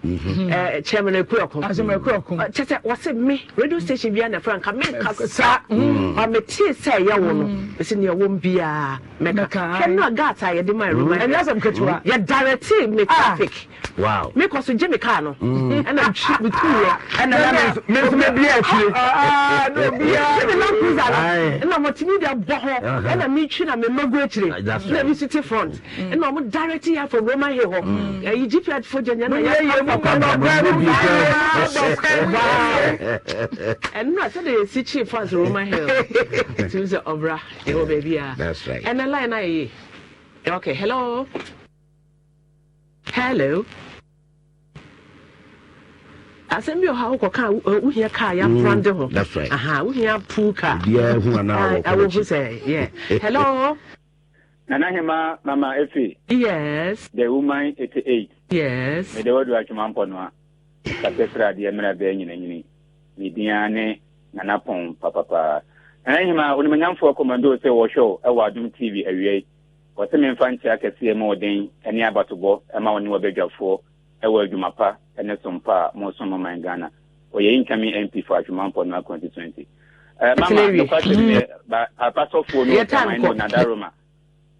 chairman Ekurakun. Asema ah, Ekurakun. Kyɛ ah, sɛ wɔsi mi radio station bi a na franka mi nka sa ɔmi tii sɛ ɛyɛ wɔ no bɛsi mm. nea wɔm biara mɛka. Hwɛ nua gas a yɛde ma ɛroma. Mm. Ɛnyɛ sɛ nketewa. Yɛ direct mi ah. traffic. Wow. Mi kɔ so gye mi kaa no. Mm. Ɛna twi mi tu yɛ. Ɛna mi nso mi bi ɛfie. Aa n'o bi ya. Ɛna mi kuza la. Ɛna mo ti mi de bɔ hɔ. Uh-huh. Ɛna mi twi na mi mɔgu ekyire. Ɛna mi si ti front. Ɛna ɔmo direct yɛ afɔ Roman Hill hɔ. Ɛyi GPS fo jɛnyɛ na yɛ *laughs* And not that it's cheap for us, Roma Hill. It was the Obra, your baby. That's right. And a line I. Okay, hello. Hello. asɛm bi ɔha wokɔ ka wohia kaa yɛamprande ho wohia puu ka awɔhu sɛ yɛ hello nanahema mama efi yes the woman 88 yes mede wadu atwuma mpɔ no a kasa sradeɛ mmerɛ bɛɛ nyinanyini ne dia ne nanapɔn papapaa ɛna hima onimanyamfoɔ kɔmmando sɛ wɔhwɛ ɛwɔ adom tv awia yi wɔsɛ memfa nkyea kɛseɛ ma ɔden ne abatobɔ ma ɔne wɔbɛdwafoɔ ɛwɔ adwuma pa ne sompa a mosom maman ghana ɔyɛ nkame mp for adwumampɔ no 2020 mama nokwasɛm dɛ apasɔfoɔ no ɔtaman no nadaroma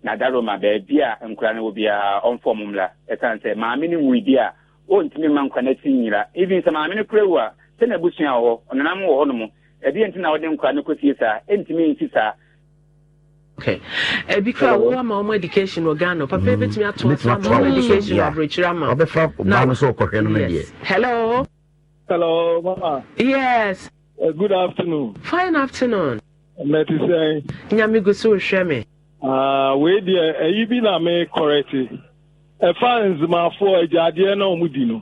nadaroma baabi a nkora no wɔ biara ɔmfɔ mo mmra ɛsiane sɛ maame no nwuidi a ɔntumi mma nkwana si nyira even sɛ maame no kura wu a sɛ na abusua wɔ hɔ ɔnenam wɔ hɔ no mu nti na wɔde nkwa no kɔsie saa ɛntumi nsi saa ebi eh, kura wo ama ɔmo education wɔ ghana papa mm. ebetumi ato ɔso ama ɔmo education wɔ aburokyire ama ɔbɛfra ɔbaa no so ɔkɔhwɛ no no deɛ hello hello mama yes uh, good afternoon fine afternoon mɛti sɛn nyame gu so hwɛ me ah, wei deɛ ɛyi bi na me kɔrɛti ɛfa nzimafoɔ agyadeɛ na ɔmo di no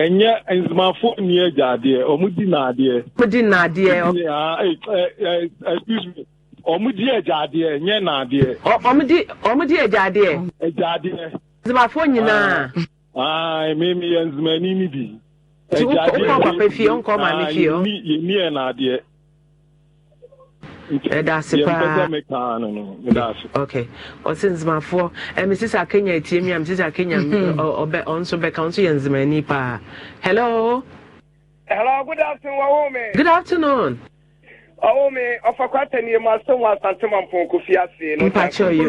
ɛnyɛ nzimafoɔ ni agyadeɛ ɔmo di naadeɛ. ɔmo di naadeɛ. excuse me ɔmo di agyadeɛ nyɛ naadeɛ. ɔmo di ɔmo di agyadeɛ. agyadeɛ. nyinaa. aa mmemme yɛ nzimani bi. yɛ ni yɛ ni yɛ ɛdaase paa ok ɔse nzimafoɔ mesisi akenya atie mi a mesisi akenya mhm. ɔbɛ ɔnso bɛka ɔnso yɛ nzimani paa hello. hello good afternoon ɔwɔ mi. good afternoon. ɔwɔ mi ɔfakwa tɛniyɛ mu asɛn wɔ asante ma mpɔn kofi ase. mpakyɛ yi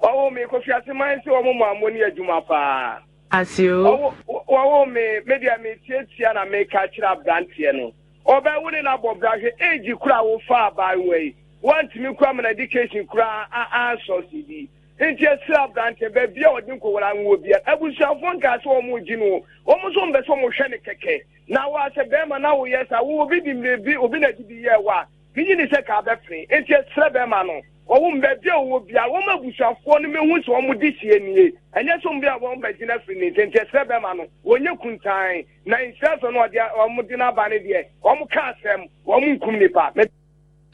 o. ɔwɔ mi kofi ase maa n se wɔn mu amoni adwuma paa. ase o. ɔwɔ mi media mi tietia na mi ka kyerɛ aberanteɛ no. ọbẹ̀wò ni na bọ̀ brahwẹ̀ éèjì kura wò fa abaayewa yi wọ́n ti mi kura mana education kura a a sọ̀sì bi nti esi aberante beebi a ọdị nkọwara nwụọ bia ebusuafo nkaasị ọmụ gyi no ọmụ nso mbese ọmụ hwẹ ne kẹkẹ na w'asị bẹẹma na w'oyẹ sa obi bi mmiri bi obi na edidi yẹ wa gịnị ni sị ka abẹ fere nti esi bẹẹma no. wɔn baabi a wɔwɔ bia wɔn abusuafoɔ no mehu sɛ wɔn de sie nie ɛnyɛ sɛ wɔn bi a wɔn bɛgyina firi ne nkyɛn kyerɛ bɛma no wɔn nyɛ kuntan na nsɛsɛ no ɔde wɔn de n'aba ne deɛ wɔn ka asɛm wɔn nkum nipa.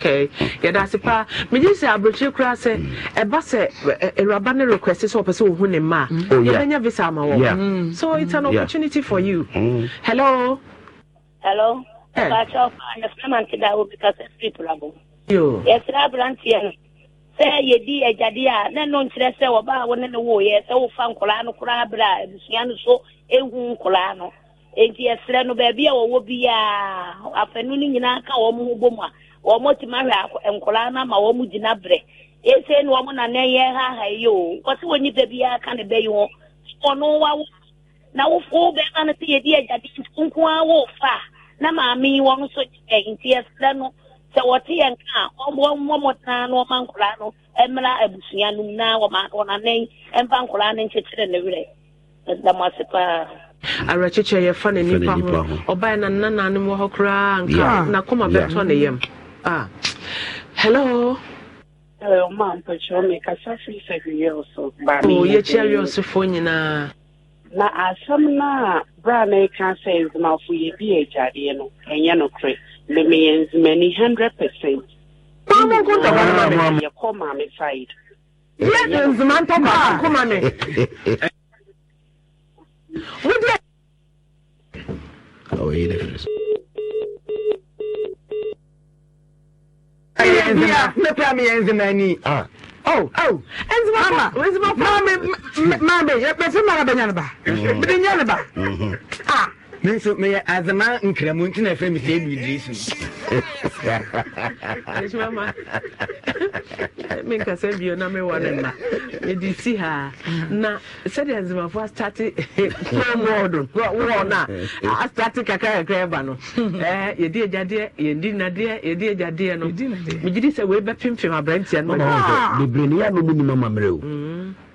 Okay. yɛda ase paa megye sɛ aberɛkyire koraa sɛ ɛba sɛ awuraba no request sɛ ɔpɛ sɛ ɔhu ne ma mm. oh, yɛbɛnya visa ama wɔ mm. so it's an mm. opportunity for you mm. hello hello eh. aberanteɛ no sɛ eh, yɛdi agyadeɛ a na ɛno nkyerɛ sɛ ɔbaa wo ne ne woyɛ sɛ wofa nkɔlaa no koraa berɛ a abusua e no so ehu nkɔlaa no nti yɛserɛ no baabi a wɔwɔ biaa afanu no nyinaa ka wɔn ho bom a wɔn tumi ahwɛ nkɔlaa no ama wɔn gyina berɛ na wɔn nana yɛ ha ha yi o ne ɔno na wofo bɛrima no na maame yi eh, sɛ wɔte ah, a ɔmmɔ mmɔtena na ɔma nkwadaa no mmra abusua no mu na wɔnanan mfa nkwadaa no nkyekyere ne werɛ ase ah. paa awerɛkyekyɛ yɛfa ne nipa ho na nananom wɔ hɔ koraa nka nakoma bɛtɔ ne yam hello Hello, ma'am, but oh, na asɛm e e no a na ɛka sɛ yɛbi agyadeɛ no ɛnyɛ nokorɛ many hundred percent yɛkɔ maame side yɛ nzima ntɔ baako ma me wodeɛ Oh, he difference. Ah. Oh, oh, Enzima, Enzima, Mama, Mama, you're better, Mama, Benyanaba. Benyanaba. Ah. Um me nso meyɛ azama nkramu nti na ɛfrɛ e e e me sɛ ɛdu idris no menkasa bio na mewa no ma mede si haa na sɛdeɛ nzemafo astate promod wɔ no a astate kakrakakra ɛba no yɛdi agyadeɛ yɛdi nadeɛ yɛdi agyadeɛ no megye di sɛ weibɛpempem aberantia no bebree ne yɛ a no mu nim amammerɛ o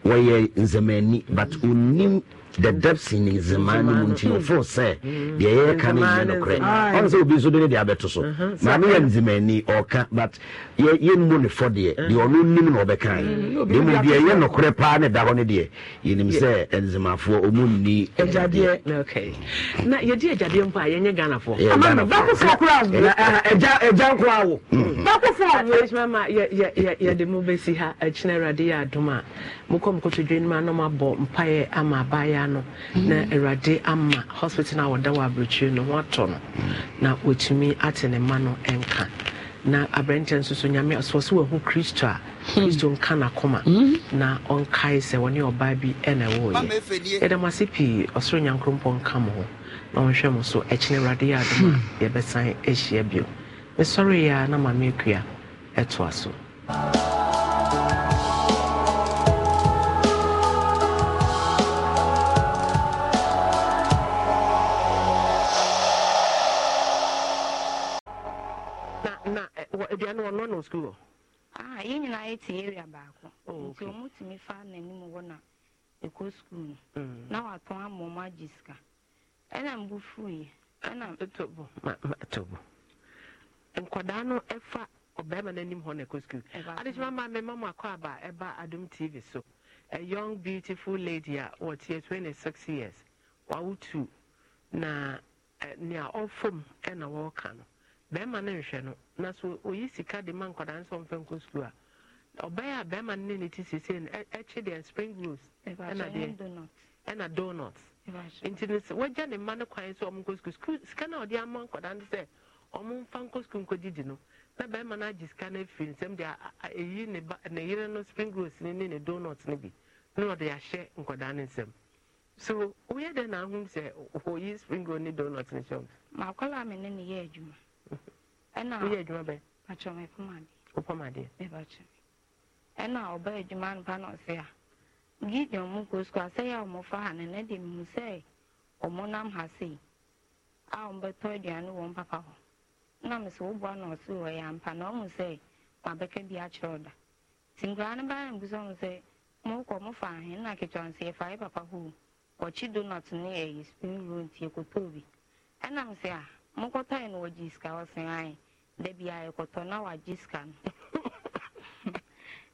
wɔyɛ nzɛmani but ɔnim dadabsi ne zeman no mu nti yɛfoo sɛ deɛ yɛreka no nyɛ nokorɛ ɔne sɛ obi nso de ne de abɛto so mm-hmm. maame yɛ nzemani ɔka but yɛmmu ne fɔ deɛ mm. deɛ ɔno nim na ɔbɛkae de mu deɛ ɛyɛ nokorɛ paa ne da hɔ no deɛ yɛnim sɛ nzemafoɔ ɔmu nni agyadeɛ agya nko awo bakofoɔ yɛde mu bɛsi ha awurade yɛ adom a mokɔ mokɔtodwe no mu anam abɔ mpaeɛ ama abaeɛ no mm. na awurade ama hospital no a wɔda wɔ aberɛkyiri no ho atɔ no mm. na wɔtumi ate ne ma no nka na aberɛnkyɛ nso so nyame sɛ sɛ wahu kristo a hmm. kristo nka nakoma mm. na ɔnkae sɛ wɔne ɔbaa bi ɛna ɛwɔɔyɛ yɛda mo ase pii ɔsoro nyankrompɔ nka m ho na ɔnhwɛ mo so ɛkyene awurade yɛ adom a hmm. yɛbɛsan ahyia bio mesɔreyɛ a na mameakua ɛtoa so ɛte area baako oh, nti tumi fa n'anim na ɛkɔ sukuu no mm. na tobo nkwadaa no ɛfa ɔbɛrima n'anim hɔ na sukuu adehyema maa mi akɔ aba ɛba adum tv so a young beautiful lady a wɔte twenty six years na nea ɔfam ɛna wɔɔka no bɛrima no nhwɛ no na so oyi sika de ma nkwadaa nso ɔmfɛ nkɔ ɔbɛyɛ a bɛrima ne ne ti no deɛ spring rolls ɛna deɛ ɛna donuts nti no wagya ne mma no kwan sɛ ɔmo nkɔ sukuu sika no ɔde ama nkɔdaa no sɛ ɔmo mfa nkɔ sukuu nkɔgyegye no na bɛrima no agye sika no afiri nsɛm deɛ ɛyi ne ba ne yere no spring rolls no ne ne donuts no bi na ɔde ahyɛ so na sɛ spring ne hyɛ ɛna ɔbaa adwuma nopa na ɔse a gideon mu nkɔ sukuu asɛ yɛ a ha na nɛde mu sɛ ɔmo nam ha si a ɔmbɛtɔ aduane wɔ mpapa hɔ na mesɛ woboa na ɔse wɔ yɛ ampa na ɔhu sɛ mabɛka bi akyerɛ ɔda nti nkoraa no mbu sɛ sɛ mokɔ ahe na yɛfa yɛ papa donut ne ɛyɛ spring roll nti bi a mokɔtɔe wɔgye sika ɔsen ae da na wɔagye sika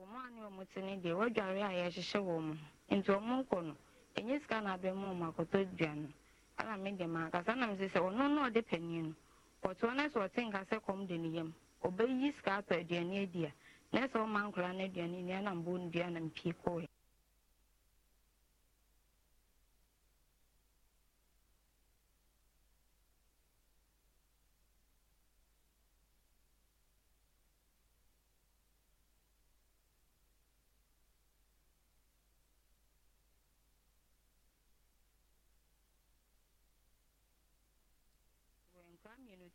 wɔmaane ɔmo te ne deɛ wɔadware a yɛhyehyɛ wɔ mu nti ɔmo nkɔ no ɛnyɛ sika na abɛn mu ɔmo akɔtɔ dua no ɛna me deɛ ma akasa nam sɛ sɛ ɔno na ɔde panin no ɔtoɔ na sɛ ɔte nka sɛ kɔm de ne yam ɔbɛyi sika atɔ aduane adi a na sɛ ɔma nkora no aduane nua na mbɔ dua na mpie kɔɛ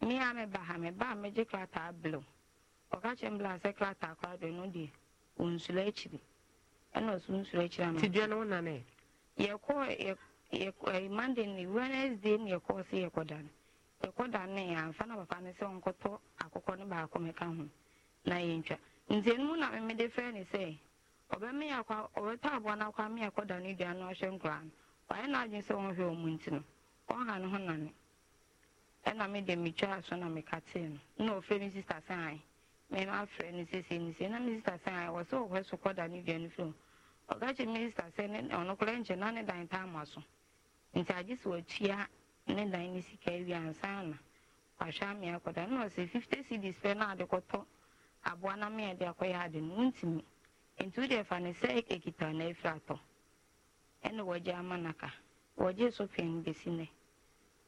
me a meba ha ba a megye krataa blu ɔka kyerɛ m bla sɛ krataa kora do no deɛ ɔnsuro akyiri ɛna ɔso nsuro akyiri ama tidua no wonane yɛkɔ yɛ monday ne wednesday ne yɛkɔɔ sɛ yɛkɔda no yɛkɔda no amfa na papa no sɛ ɔnkɔtɔ akokɔ no baako meka ho na yɛntwa nti ɛno mu na memede frɛ ne sɛ ɔbɛme akɔ ɔbɛtɔ aboa no akɔ ame akɔda no dua no ɔhwɛ nkoraa no ɔyɛ no adwene sɛ ɔnhwɛ ɔmu nti no ɔnha no ho nane ɛna me de metwaa so na mekatee no na ɔfrɛ me sister sɛ ae mema frɛ no sesei no sei na me sister sɛ ae wɔ sɛ anyị so kɔda ne dua no firi ɔka kye me ne na ne dan ta ama so nti agye sɛ watua ne dan ne sika awie ansa na wahwɛ amea kɔda na ɔsɛ si cedis na ade kɔtɔ aboa na mea de ya ade no nti wode fa ne sɛ na afiri atɔ wɔgye ama naka wɔgye so pɛn bɛsi nɛ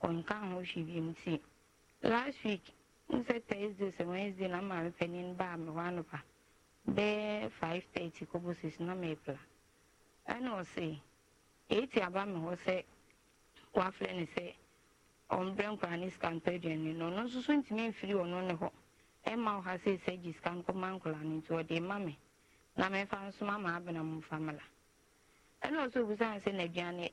nke ahụ shibi m si last week nse Thursday ose Wednesday na mmalite n'ịba amịwanụba bee 5:30 kobo 6 na mepla ɛna ɔse eti aba mi hɔ sɛ wafrɛ ne sɛ ɔmbrɛ nkora ne scampedian ne no ɔno nso so ntumi mfiri ɔno ne hɔ ɛma ɔha sɛ sɛ gye sika nkɔma nkora ne nti ɔde ma na mɛfa nso ma ma abena mu famila ɛna ɔso obisa sɛ n'aduane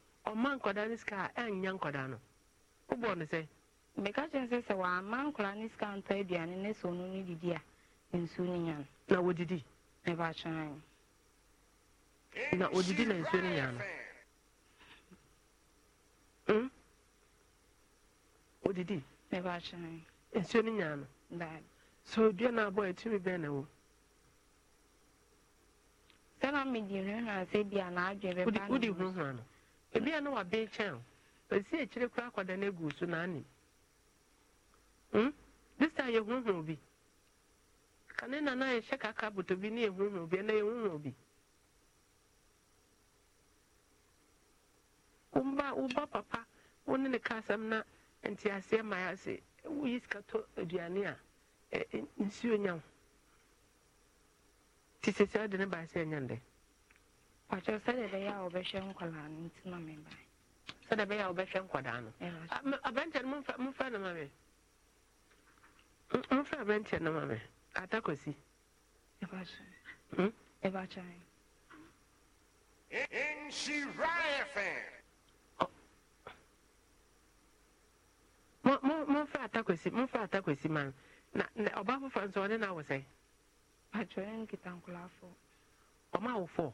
Ọma nkɔda ne a ịnyịnya nkɔda no Ụgbọ no sɛ meka kyerɛ sɛ sɛ wɔama nkɔda ntọ sika ntɔ aduane ne sɛ a nsuo no na wɔdidi mebakyerɛ na odidi na nsuo no nya no ɔdidi hmm? mebakyerɛ nsuo no nya no so dua no abɔ ɛtumi bɛn na wɔ sɛ na medi hwehwɛ a na naadwe ebi a na wabịa nkyɛn esi ekyiri kora akwadaa na egu so n'anim hmm ya time yɛhuhu obi kane na na bi na yɛhuhu obi ɛna yɛhuhu obi womba woba papa wo na ma aduane a ɔkyerɛ sɛdeɛ ɛbɛyɛ a wɔbɛhwɛ nkwadaa no nti na meba sɛdeɛ ɛbɛyɛ a wɔbɛhwɛ nkwadaa no aberanteɛ no momfrɛ no ma me momfrɛ aberanteɛ no ma me atakɔsi momfrɛ atakɔsi momfrɛ atakɔsi ma no na ɔbaa foforɔ nso ɔne no awɔ sɛ ɔma awofoɔ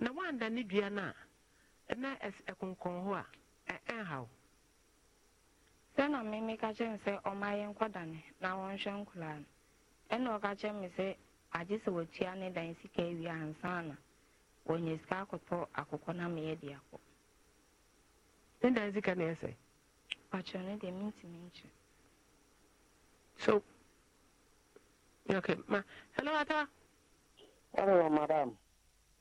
na wanda ne dua no e a e- e na ɛkonkɔn hɔ a ɛnhaw na meme ka kyerɛ me sɛ ɔma yɛ nkɔdane na wɔnhwɛ nkoraa no ɛna ɔka kyerɛ me sɛ agye sɛ watua ne dan sika awie ansa na wɔnya sika akɔtɔ akokɔ na meyɛ de akɔ ne dan sika na ɛsɛ pakyerɛ no deɛ mentimi so okay ma hello ata hello madam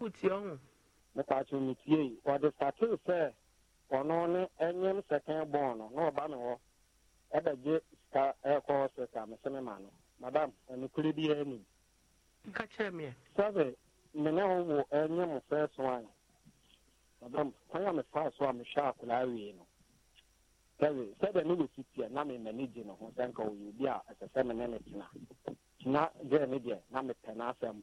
kuti ɔhun. meka kye ne tie yi ɔde statee sɛ ɔno ne ɛnyɛm sɛkɛn bɔn no na ɔba me hɔ ɛbɛgye sika ɛkɔ sika me sɛ me ma no madam ɛnukuri bi ɛni. nka kyerɛ mi yɛ. sɛbi mene ho wɔ ɛnyɛm fɛɛso an madam kwan a mefa so a mehwɛ akwadaa wie no sɛbi sɛbi ne wɔsi tie na me mani gye ne ho sɛ nka ɔyɛ obi a ɛsɛ sɛ me ne ne tena tena gye ne deɛ na mepɛ n'asɛm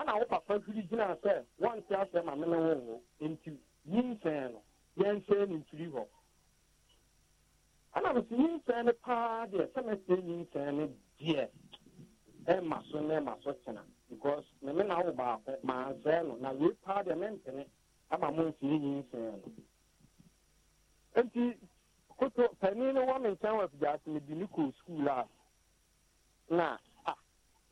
ana wo papa firi gyina sɛ wɔnte asɛ ma mene wo wo nti yi nsɛn no yɛnsɛn no mfiri hɔ ana me sɛ yi nsɛn no paa deɛ sɛ mɛsɛ yi nsɛn no deɛ ɛma so na ɛma so tena because me me na wo baako maansɛn no na wee paa deɛ mɛmpene ama mo nsiri yi nsɛn no nti koto panin no wɔ me nkyɛn wɔ afidie ase me di ne kɔ skuul a na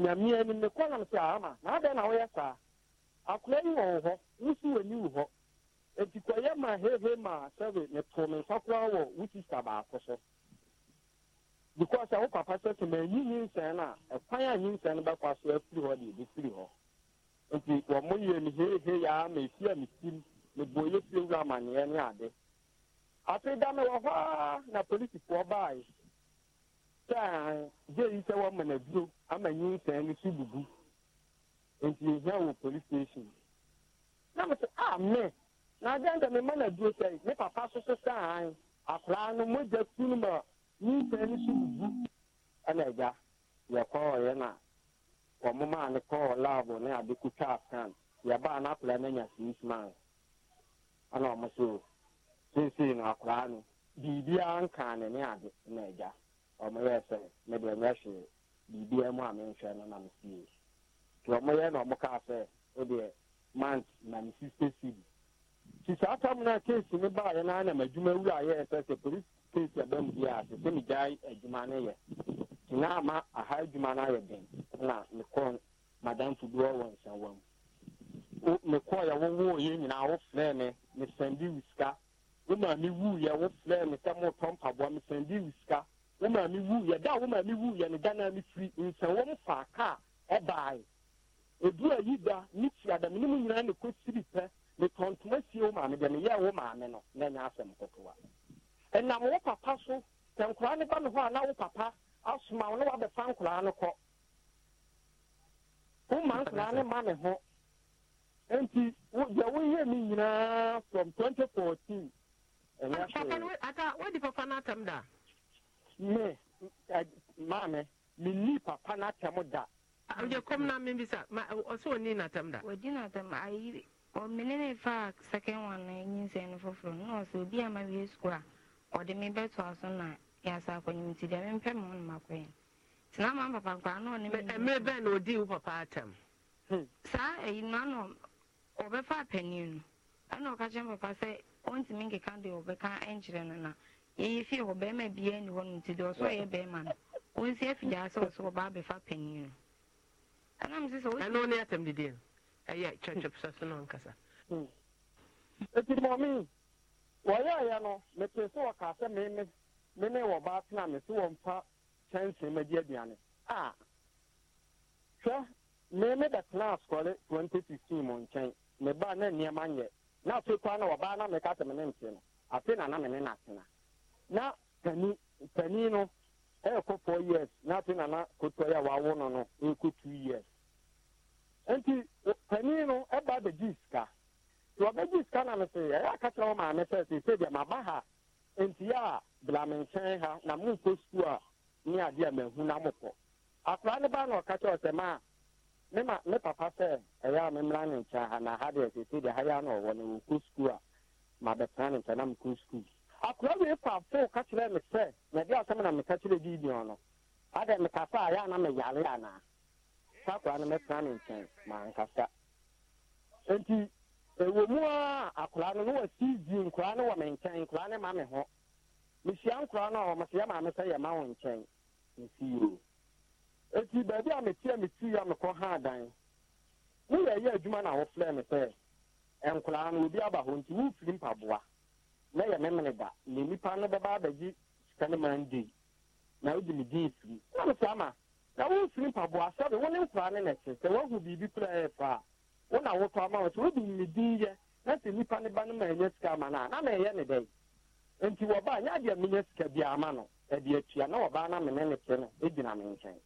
nyamea no mekɔnam sɛ ama na adɛn na woyɛ saa akora yi wɔn hɔ wosi w'ani wo hɔ nti kɔyɛ ma hehe ma sɛbe meto me nsa koraa wɔ wo sista baako so because a wo papa sɛ sɛ manyi nyinsɛn no a ɛkwan a nyinsɛn no bɛkɔ so afiri hɔ deɛ ɛbɛfiri hɔ nti wɔn mo yɛ me hehe ya ma efi a me sim me bɔ yɛ fie wura amanneɛ ne ade afei da me wɔ hɔ a na polisifoɔ baae saa jeyi sɛ wɔma no aduro ama nyinsɛn no so bubu nti yɛhia wɔ police station na a ah, me na adɛn dɛ mema no aduro sɛ papa so saa akoraa no no ma no so bubu ɛna kɔɔ ne akoraa na ɛna so seesei akoraa no biribiara nkaa ne ne ɔmoyɛ sɛ mede mɛhwe biribia mu a menhwɛ no na mesie nti na ɔmokaa sɛ wodeɛ mant na me sister sidi nti saa tam no a case wura sɛ sɛ bi sɛ sɛ megyae adwuma no yɛ nti ama aha adwuma na madamfo wɔ mu wowoo yɛ nyinaa me sika me sɛ motɔ mpaboa sika wo maame wu yɛ da wo maame wu yɛ no ghana ne firi nsɛwɔm fa kaa ɛbaae edu ayi da ne ti adam ne mu nyinaa ne kɔ siri pɛ ne tɔntoma sie wo maame deɛ ne yɛ wo maame no na nya asɛm kɔkɔwa ɛnam wo papa so sɛ nkoraa ne ba ne hɔ a na wo papa asoma wo ne wabɛfa nkoraa no kɔ wo ma nkoraa ne ma ne ho nti deɛ woyɛ me nyinaa from 2014 ɛnyɛ hwee. ata wodi papa no atam da. me eh, maame n'i papa n'atɛm da wode kɔm na sa ɔsɛ ɔni da ɔdi ayi ne fa second one na nyinsɛn no foforɔ no na ɔsɛ obi ama wie sukuu a ɔde na yasa akɔnyim nti deɛ mempɛ ma tena ma papa nkora na ɔne mmerɛ bɛn na ɔdii wo papa atɛm hmm. saa ayi ɔbɛfa no ɛna papa sɛ ɔntumi nkeka ɔbɛka nkyerɛ Yeye fie hɔ bɛrima biara ni hɔnom nti deɛ ɔsɔ yɛ bɛrima no wɔn si afidie asɛ ɔsɔ ɔbaa bɛfa panyin no anam sɛ sɛ wɔsi. ɛnu ne atam didi no ɛyɛ kyerɛkyerɛ pisa so na ɔnkasa. Hmm. eti mɔmi wɔyɛ ɛyɛ no mete sɛ wɔka sɛ meme meme wɔ baa tena me sɛ wɔmfa kyɛnsee ma di aduane a hwɛ meme bɛtena asɔre twenty sixteen mu nkyɛn me ba na nneɛma nyɛ na afei kwan na wɔbaa na meka sɛ me ne nte no afei na na me ne na atena. na pani pani no ɛrekɔ four years na afei nana yi a wawo no no two years nti pani no ɛba sika tí sika na no ya ɛyɛ aka kyerɛ wɔn maame sɛ sɛ sɛdeɛ maba ha nti a blame nkyɛn ha na mu nkɔ sukuu a na mo na ɔka ma ne papa sɛ ha na ha deɛ sɛ sɛdeɛ ha na ɔwɔ no wɔkɔ sukuu a ma akụra wee ịkwa fo ka kyerɛ me sɛ mede asɛm na meka kyerɛ gideon no adɛ mekasa a yɛ na meyare anaa saa akora no mɛtena ne nkyɛn mankasa nti ɛwɔ mu a akora no na wasidi nkora no wɔ me nkyɛn nkora ne ma me hụ mehyia nkora no a ɔmsɛ yɛ maame sɛ yɛ ma wo nsi nsiyo eti beebi a metia meti ya mekɔ ha mụ woyɛ eyi adwuma na wofrɛ me sɛ nkora no obi aba hɔ nti wofiri mpaboa na yɛ memene da na nipa no bɛba abɛgye sika no mande na wogye ne din firi na wo saa ma na womfiri mpaboa sɛbe wo ne nkoraa ne nɛkye sɛ woahu biribi kora ɛyɛ paa wo na wotɔ ama wo sɛ wode ne din yɛ na sɛ nipa ne ba no ma ɛnya sika ama no a na ma ɛyɛ ne dɛn nti wɔba nyɛ adeɛ menya sika bi ama no ɛde atua na wɔbaa no mene ne te no ɛgyina me nkyɛn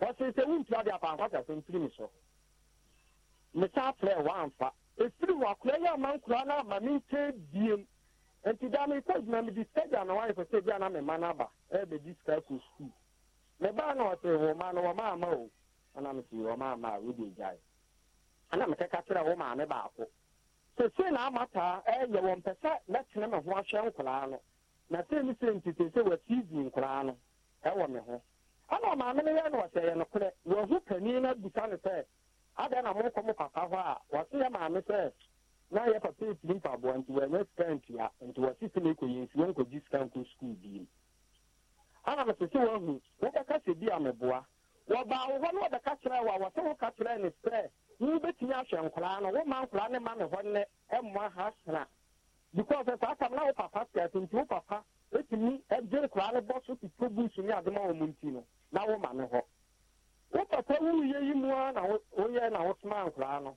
wɔse sɛ wontua de apankwasa sɛ mfiri me so mesa frɛ woamfa ɛfiri wɔ akora yɛ ama nkoraa no ama me nkyɛn biem nti da mekɔ adwuma mede stagya na wayɛ sɛ bia na mema no aba ɛbɛdi sika kɔ sukuu na ɔse ma no ma ama o ana mese ma oh. ama oh, a wode gyae ana mekɛka kyerɛ wo oh, maame baako na ama taa ɛyɛ sɛ mɛtene ho no na sei nkoraa no ɛwɔ no yɛ no yɛ na papa hɔ a na yɛ papa esi mpaboa nti wɔnyɛ sika ntua nti wɔsi sɛ mekɔ yɛ nsuo nkɔgye sika nkɔ sukuu biem ana mɛ sese wɔn ho wɔbɛka sɛ bi ameboa wɔbaa wɔ hɔ na wɔbɛka kyerɛ wɔ a wɔsɛ wɔka kyerɛ ne sɛ yi bɛtumi ahwɛ nkwaraa no wɔma nkwaraa ne ma ne hɔ nnɛ ɛmmoa ha sena because saa tam na wo papa sika so nti wo papa etumi ɛgye nkwaraa no bɔ so tutu buusu ne adoma wɔn mu nti no na wɔma ne hɔ wo papa wuyɛ yi mu a na wɔyɛ na wɔtoma nkwaraa no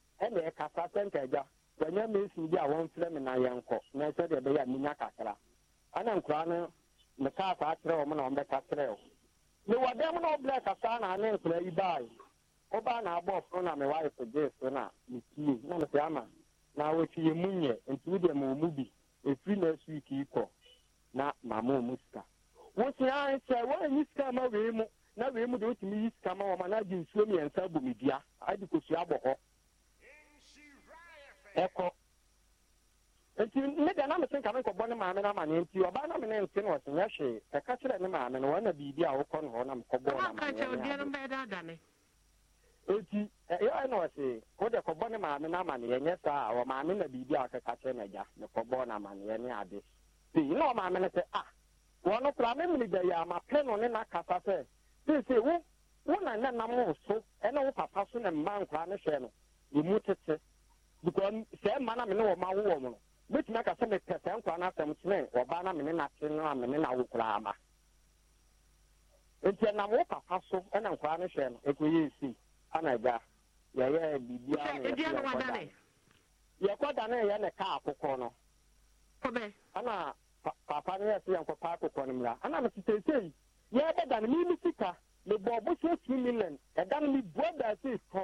ɛna ɛkasa wɔnyɛ mesin bi a na yɛnkɔ na sɛdeɛ ɛbɛyɛ a menya kakra ɛna no m na ɔmbɛka kyerɛ wo dɛm na ɔbrɛ kasa na ne nkora yi bae ɔbaa na abɔ ɔforo na mewae kogyee so na metie na mesɛ ama na wɔtwi yɛ mu nyɛ nti wodeɛ bi efiri na agba ikii na ma ɔ mu sika wosia sɛ woanyi sika ma wee mu na wei mu de wotumi yi sika ma wɔ ma na agye nsuo mmiɛnsa dua kosua ɛkɔ nti ne deɛ na mese nkɔbɔ ne maame no ama nti ɔbaa na me ne no ɔsenyɛ hwee ɛka kyerɛ ne maame no wɔna biribi a wokɔ no hɔ na mekɔbɔɔ eti ɛyɛ na ɔse wode kɔbɔ ne maame no ama nyɛ saa a ɔmaame na biribi a ɔkeka kyerɛ no agya ne no ama ne ade na ɔmaame no sɛ ah, a no ne nakasa sɛ wo wo na nam wo so ɛne because sɛ mma na mene wɔ ma wo no mɛtumi aka sɛ mepɛ sɛ nkwa no asɛm kyene ɔba na mene nate no a mene na koraa ma nti ɛnam wo papa so ɛna nkwa no hwɛ no ɛkɔyɛ si ana gya yɛyɛ biribiaa yɛkɔ da no ɛyɛ ne kaa akokɔ no ana papa no yɛ sɛ yɛnkɔpa akokɔ no mmra ana yɛbɛda no mimi sika mebɔ million ɛda no mebua daasei kɔ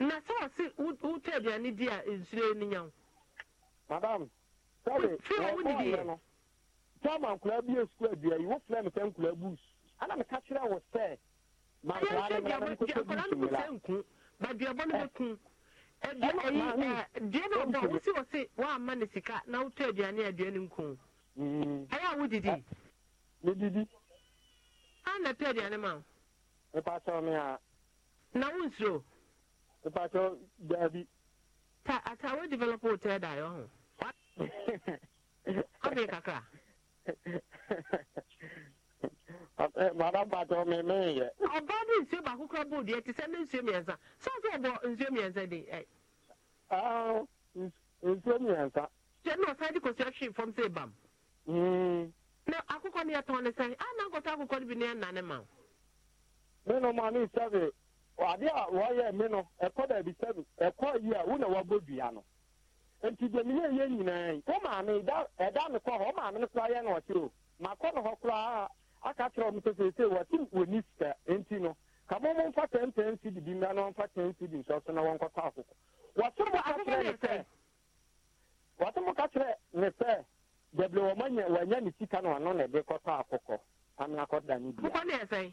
na sɛ ɔse wotɔ aduane di a nsuro ni nya wo madam sɛdeɛ tama nkoraa bi asukuu adua yi wofrɛ me sɛ nkoraa bus ana meka kyerɛ wo sɛ baduabɔ no bɛku deɛ no ɔbɔ wosi wɔ se woamma ne sika na wotɔ aduane a aduane nku mm. ɛyɛ a wodidi medidi ana tɔ aduane ma wo mepatɛ me a na wonsuro mepatɛ daabi ata wo develop wo tɛ daeɛ ho ɔbee kakra eh, mada patɛ me meyɛ ɔba de nsuo baako kora bɔɔ deɛ te sɛ ne nsuo mmiɛnsa sɛ sɛ ɔbɔ nsuo mmiɛnsa de eh. nsuo mmiɛnsa sɛ na ɔsan de kɔsua hwee fam sɛ bam hmm. na akokɔ no yɛtɔn ne sɛ ana nkɔtɔ akokɔ no bi ne ɛna ne ma me no ma ne sɛbe ade a wɔyɛ me no ɛkɔ daabi sɛ ɛkɔ yi a wo na wɔabɔ dua no nti yɛ nyinaa yi wo maame ɛda me kɔ hɔ wo maame no na ɔkyerɛ o makɔ no hɔ koraa aka kyerɛ sɛ wɔni nti no mo mfa na ɔmfa ten cd nso na wɔnkɔtɔ akoko wɔse mo ka kyerɛ ne sɛ mo ka kyerɛ ne sɛ wanya ne na ɔno na kɔtɔ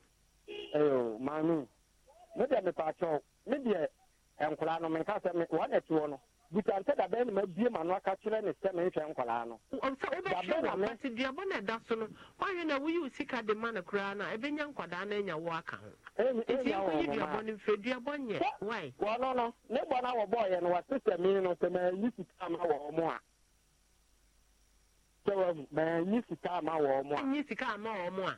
ɛyɛ maa no me deɛ mepakyɛw me deɛ nkwadaa no menka sɛ no butante dabe na ma bie ma no aka kyerɛ ne sɛ nkwadaa no na me nti duabɔ na ɛda so no wahwɛ na woyi osi sika de ma no koraa nkwadaa na anya wo aka ho ɛti nkɔyi nyɛ no ne bɔ no no sɛ sika ma wɔ a sɛ a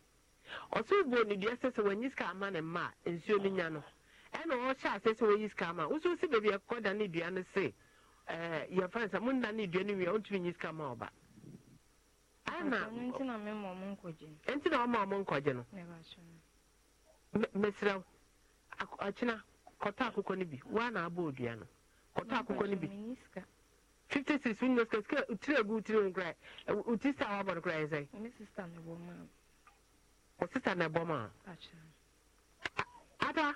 ɔsoro buo ne deɛ sɛ sɛ wanyi sika ama ne mma nsuo no nya no ɛna ɔhyɛ ase sɛ wɔyi sika ama wosow si baabi ɛkɔ da ne dua no se ɛɛ yɛfa nsa mo nna ne dua no wia ɔntumi nyi sika ama ɔba ɛna nti na ɔma ɔmo nkɔgye no mesrɛ akyena kɔtɔ akokɔ no bi woa na abɔ odua no kɔtɔ akokɔ no bi fifty six wo nyɛ sika sika tiri agu tiri wo nkora wo ti sika a wabɔ no kora yɛ sɛ o na ɛbɔ ma. ada.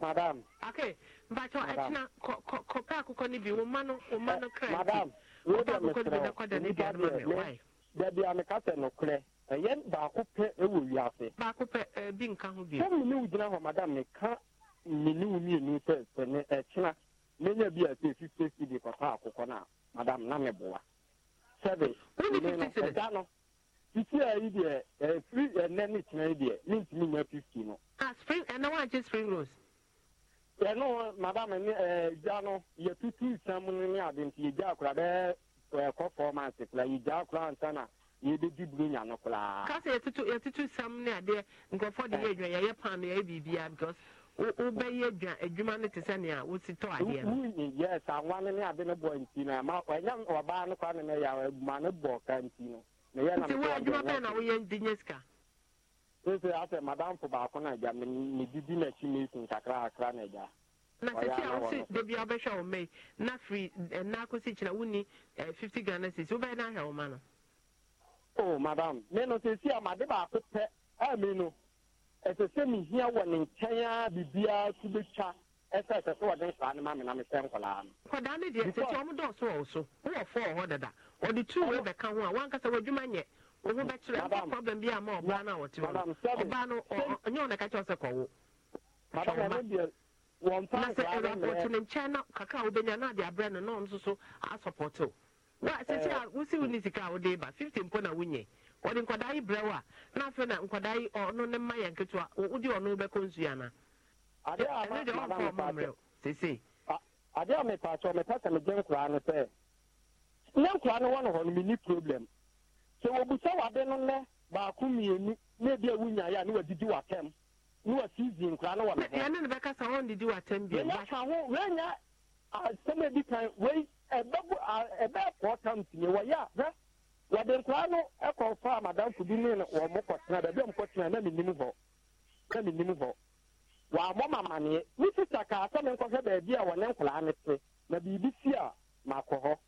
madam. okay mpatsɔ ɛtina kɔ kɔ kɔ pɛ akokɔ ni bi wo ma no wo ma no kra yi. madam wo de mi srɛ nipa deɛ ne dabi a mi ka sɛ no korɛ ɛyɛ baako pɛ ɛwɔ wiase. baako pɛ ɛɛ bi nka ho bi. sɛmu ni o gyina hɔ madam mi ka mmienu mmienu sɛ sɛ ne ɛtina menya bi a sɛ fifty cd kɔtɔ akokɔ na madam na mi bɔ wa. sɛbi ɛda no. titi a yi deɛ ɛfiri ɛnɛ ne tena yi deɛ ne ntumi nya fifty no. a ah, spring ɛnɛ spring rose ɛno madame ne ɛgya no yɛtutu nsɛm no ne ade nti yɛgya akora bɛɛ ɛkɔ fɔm ase koraa yɛgya akora nsa na yɛbɛdi buro nya no koraa. kasa yɛtutu yɛtutu nsɛm ne adeɛ nkurɔfoɔ de yɛ adwa yɛyɛ pan no because sɛ nea tɔ adeɛ no. ne ne ade ne bɔ nti na ma ɔnyɛ ɔbaa ne nti wo adwuma bɛn na asɛ madamfo baako na agya medidi n'akyi meeting kakra kakra na agya na a ma no o oh, madam me no sisi a made baako pɛ a me no ɛsɛ sɛ mehia wɔ ne nkyɛn a biribiara so bɛtwa ɛsɛ sɛ sɛ wɔde saa ne ma me na mesɛ nkɔlaa no kɔdaa no deɛ sɛti ɔmo dɔɔso wɔ wo so wowɔ fɔɔ hɔ dada ɔde tu wei bɛka ho a wankasa w'adwuma nyɛ wo ho bɛkyerɛ problem bi a ma ɔbaa no a wɔte hɔ ɔbaa no ɔnyɛ wo na ka kyerɛ sɛ kɔwo na sɛ ɛwurapɔto ne nkyɛn na kakra a wobɛnya no ade abrɛ no na ɔno nso so asɔpɔto wa sɛsi a wosi wo ne sika a wode ba fifty mpo na wonyɛ wɔde nkɔdaa yi brɛ wo a na afei na nkɔdaa yi ɔno ne mma yɛ nketewa wode ɔno wobɛkɔ nsuo anaa adeɛ a ma na a mepɛ sɛ megye nkoraa no sɛ nkoraa no hɔ no menni problem sɛ wade no nnɛ baako mmienu na ebi a wunyaeɛ a ne wadidi w'atɛm ne wasizi nkoraa no wɔ asɛm a di kan wei ɛbɛbu ɛbɛɛkɔɔ tam wɔyɛ a wɔde nkoraa no ɛkɔ fa bi ne mo kɔtena baabi a na menim hɔ na menim wɔabɔ ma amanneɛ me sista kaa sɛ menkɔhwɛ baabi a wɔne nkoraa ne te na biribi si a makɔ hɔ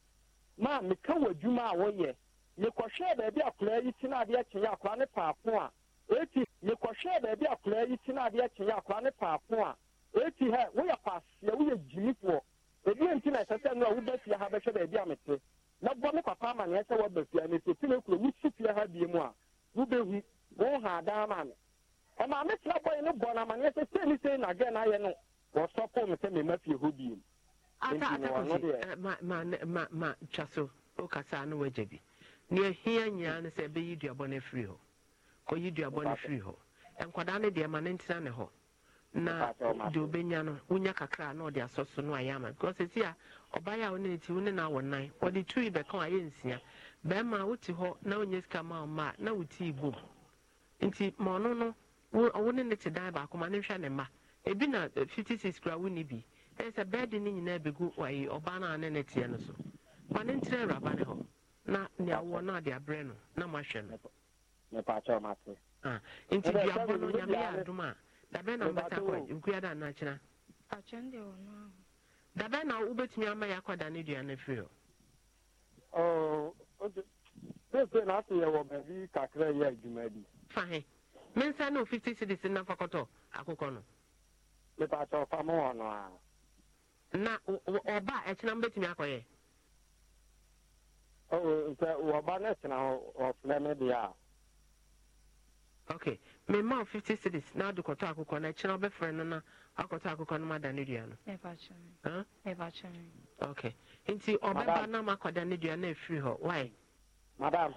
ma meka wɔ adwuma a wɔyɛ mekɔhwɛɛ baabi akoraa yi si no adeɛ ne paako a eti mekɔhwɛɛ baabi akoraa yi si no adeɛ kyenyɛ akoraa ne paako a hɛ woyɛ woyɛ ebi nti na ɛsɛ sɛ no a woba fie ha bɛhwɛ baabi a mete na bɔ me papa amanneɛ sɛ wɔba fie ha mete ti na ekuro wosi fie ha bie mu a wobɛhu wɔn ɔmaa me tena bɔe no bɔ no amanneɛ sɛ sɛ na sei nagɛ no ayɛ no wɔsɔpo me sɛ mema fie hɔ si ma ma ma ma twa so wokasaa no woagya bi nea hia nyinaa no sɛ ɛbɛyi duabɔ no afiri hɔ kɔyi duabɔ no firi hɔ nkwadaa no deɛ ma no ntena ne hɔ na deɛ obɛnya no wonya kakra na ɔde asɔ so no ayɛ ama because ɛsi a ɔbaeɛ a wo ne ne ti wo ne no awɔ nan ɔde tui bɛka a ɛyɛ nsia bɛrima wote hɔ na wonya sika ma ɔma na wo tii bom nti ma ɔno no wo ne ne te dan baako ma ne hwɛ ne mma ebi na eh, fifty six kura wo ne bi ɛyɛ sɛ bɛɛdi ne nyinaa begu ayi ɔbaa no ne ne teɛ no so ma ne ntina awuraba ne hɔ na nea wɔ no a de abrɛ no na ma hwɛ no. Ah, nti no nyame yɛ a dabɛ na mbata kɔ nkua da na akyena. dabɛ na wobɛtumi ama yɛ akɔda ne dua hɔ. Oh, na ase yɛ wɔ baabi kakra yɛ adwuma bi. fahin. mensa no 50 cities na akụkọ nọ ọnụ a na ọba ɛkyena akọ ya. o wɔba no kyena ɔfrɛ me deɛ a ok mema e e e o 50 na wode akụkọ na no ɛkyena na wakɔtɔ akokɔ no ok nti na makɔda ne dua no afiri hɔ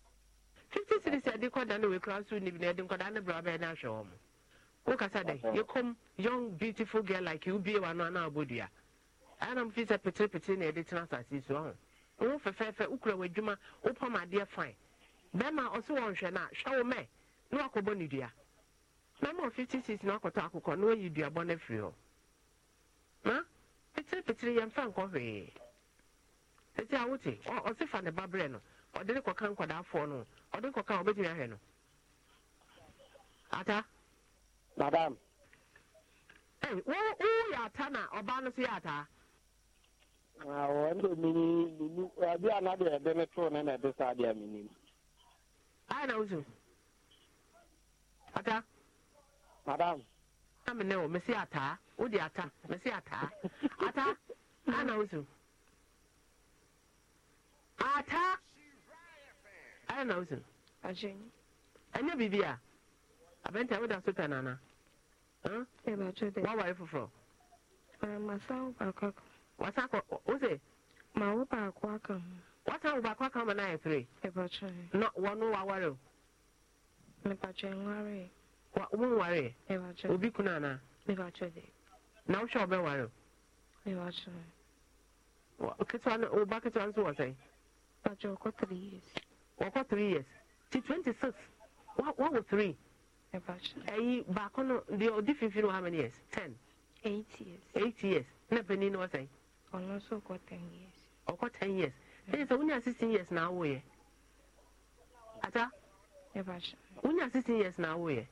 fifty cities yɛde kɔda no wekura so nim na yɛde nkɔda no brɛ bɛyɛ no ahwɛ wɔ mo wokasa dɛ yɛkɔm young beautiful girl like you bie wano ana abɔdua anam fi sɛ peterepetire na yɛde tena asase so ho wo fɛfɛɛfɛ wokura w'adwuma wopam adeɛ fine bɛma ɔso wɔ nhwɛ no a hwɛ wo mɛ na wakɔbɔ ne dua na fifty six na wakɔtɔ akokɔ na wayi duabɔ no afiri hɔ na peterepetire yɛmfa nkɔ hwee ɛti a ɔse fa ne ba no ɔde ne kɔka nkɔdaafoɔ no ɔde ne kɔka ɔbɛgyina ahɛ no ata madam woyɛ ata na ɔbaa no so yɛ ataa ɛnde mini minu abi a na deɛ ɛde ne too ne na ɛde saa deɛ minim ayɛ na wosu ata madam na mene wo mesi ataa wode ata mesi ataa ata ayɛ na wosu ata Aya na wosin ɛnyɛ Bibi e a abɛnti a woda so pɛ nana woaware foforɔ wasa kɔ ose. mawo baako aka wasa wo baako aka ma na ayɛ pere na wɔno Wawari o wonwareɛ obi kunu anaa na wohwɛ wobɛware o ketewa no wo ba ketewa nso wɔ wɔkɔ three years ti twenty six Wa wɔwɔ three ɛyi baako no di deɛ ɔdi fifin wɔ how many years ten eight years eight years na panin no wɔsɛn ɔno nso ɔkɔ ten years ɔkɔ ten years ɛyɛ sɛ wonya sixteen years na awo yɛ ata wonya sixteen years na awo yɛ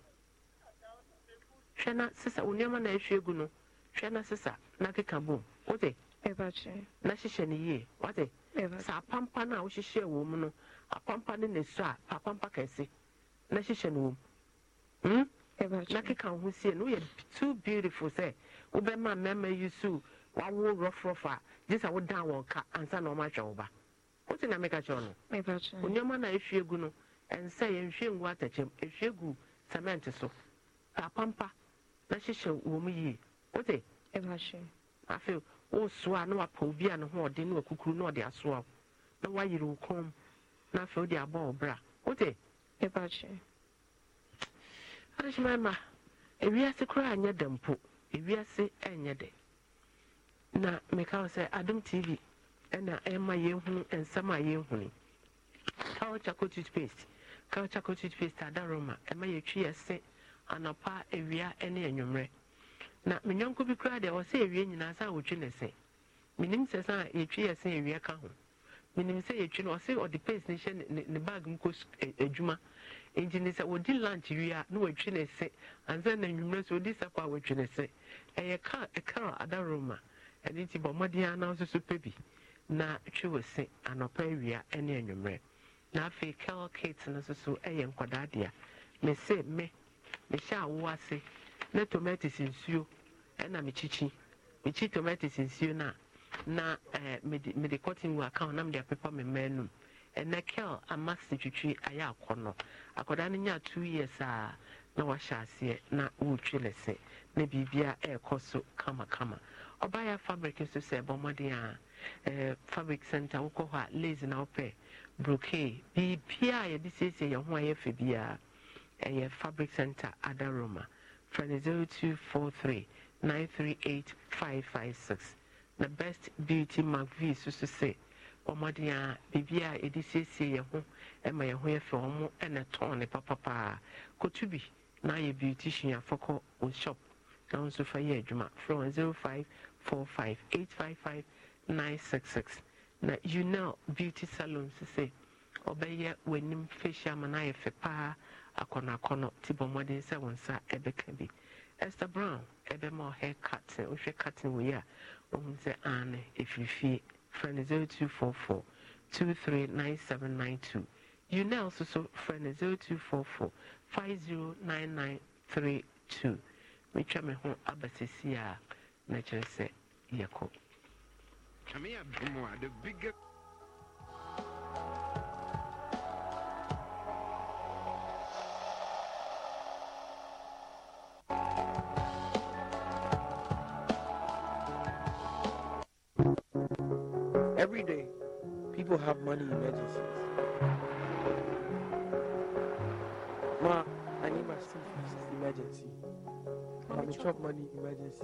hwɛ na sisa wo nneɛma na ehwie gu no hwɛ na sisa na keka bom wote na hyehyɛ ne yie wote saa pampa na a wohyehyɛ wɔ mu no. akwampa ne ne so a akwampa kɛse na hyehyɛ no wɔ mu hmm? na keka ho sie no woyɛ too beautiful sɛ wobɛma mmarima yi so wawo rɔfrɔf a gye sɛ wodan wɔn ka ansa na ɔma wo ba wote na meka kyerɛ no onnoɔma na ɛhwie gu no ɛnsɛ yɛnhwie ngu ɛhwie gu cement so apampa na hyehyɛ wɔ mu yie wote afei na wapa obi a ne ho na wakukuru na ɔde asoa na wayere wo kɔn na afei wode abɔ wo bra wote adehyema ma ewiase koraa nyɛ dɛ mpo ewiase nyɛ de na meka wo sɛ adom tv ɛna ɛma yɛhunu nsɛm a yɛhunu kawchako toothpaste kawchako toothpaste ada roma ɛma yɛtwi yɛse anapa awia ne anwummerɛ na me nyɔnko bi koraa deɛ ɔsɛ awie nyinaa sa a wɔtwi ne se menim sɛ sɛ a yɛtwi yɛse awia ka ho menim sɛ yɛtwi no ɔse ɔde pace ne hyɛ ne bag mu kɔ e, adwuma nti ne sɛ wɔdi lunch wie a na watwi ne se ansa na nnwummerɛ sɛ ɔdi sapɔ a watwi ne se ɛyɛ car ɛcar adaroma ɛno nti bɔ mmɔden ana nso so pɛ bi na twe wɔ se anɔpa awia ne anwummerɛ na afei cal kate no nso so ɛyɛ nkwadaa dea mese me mehyɛ awo ase na tomatoes nsuo ɛna mekyikyi mekyi tomatoes nsuo no a na eh, mede cotton wool aka na mede apepa me mmaa num ɛnɛ kel amasi twitwi ayɛ akɔnɔ akwadaa no nya two years a na wahyɛ aseɛ na wɔretwi lɛsɛ na biribia ɛrekɔ so kamakama ɔbaayɛ fabric nso sɛ ɛbɔ mmɔden a ɛɛ eh, fabric center wokɔ hɔ a lace na wopɛ brocade biribia a yɛde siesie yɛn ho a yɛfɛ biara ɛyɛ fabric center adaroma fɛn zero two four three nine three eight five five six na best beauty mcvie soso sɛ ɔmɔden a biribi a yɛde siesie yɛn ho ma yɛn ho yɛ fɛ wɔn na tɔn ne papapaa kotu bi na ayɛ beauty suafo wɔn shop na wɔn nso fa yɛ adwuma frɛ zero five four five eight five five nine six six na know beauty salon sɛ ɔbɛyɛ w'anim facial ma no ayɛ fɛ paa akɔnɔakɔnɔ ti bɔ mmɔden sɛ wɔn nsa bɛka bi esther brown ɛbɛma ɔhair curtain wohwɛ curtain wɔ yi a. ohun sɛ aane efifie frɛ no zero two four four two three nine seven nine two You soso frɛ no zero two four four five zero nine nine three two metwa me ho aba sisi a na kyerɛ sɛ yɛkɔ. Kàmi àbúrò the biggest. emergency.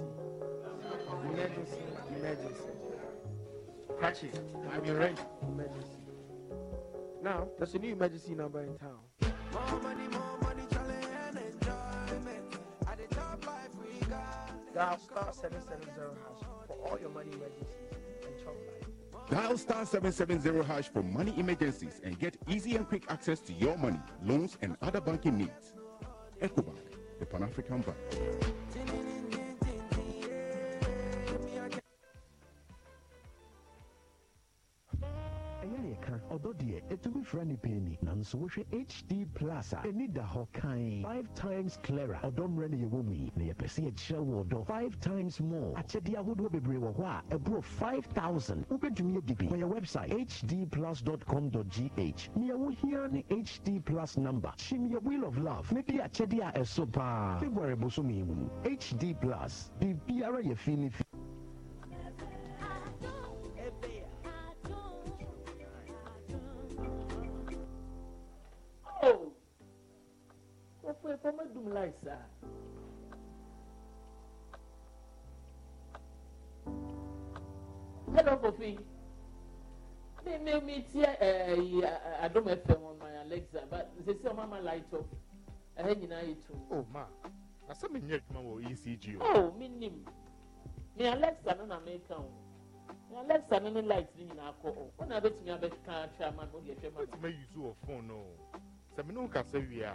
Emergency, emergency. Catch it. I'm your Emergency. Now, there's a new emergency number in town. More money, more money, challenge and enjoyment. At the top life we got. Dial star 770 hash for all your money emergencies and top life. Dial star 770 hash for money emergencies and get easy and quick access to your money, loans, and other banking needs. Ecobank, the Pan African Bank. ɔdɔ deɛ ɛtumi fira nipa ani nanso wohwɛ hd plus a da hɔ five times clara ɔdɔ mmerɛ no yɛwɔ mu yi na yɛpɛ five times more akyɛdeɛ ahodoɔ bebree wɔ hɔ a ɛborɔ 5000 wobɛtumi adi bi wɔyɛ website hdplus.com.gh nea wohia hd plus number hyim yɛ wheel of love ne de esopa. a ɛso february Bosumi hd plus biribiara yɛ fi ne fún ẹ kó dùn láìsà. hello kofi mi mi mi ti ẹ ẹ adum ẹfẹ wọn ma alexa but sisi ọmọ ama light up ẹhẹ nyinaa yẹ tu. Oh, e o ma asẹ́ mi n yẹ adwuma wọ ecg o. o mi nim mi alexa no na mi kan o mi alexa no ni light ni nyinaa kọ o ọ na bẹ tumi abẹ kan atwa ama no yẹ hwẹ ma. o ti ma yi wọ fone no sẹmi ní o kasa wia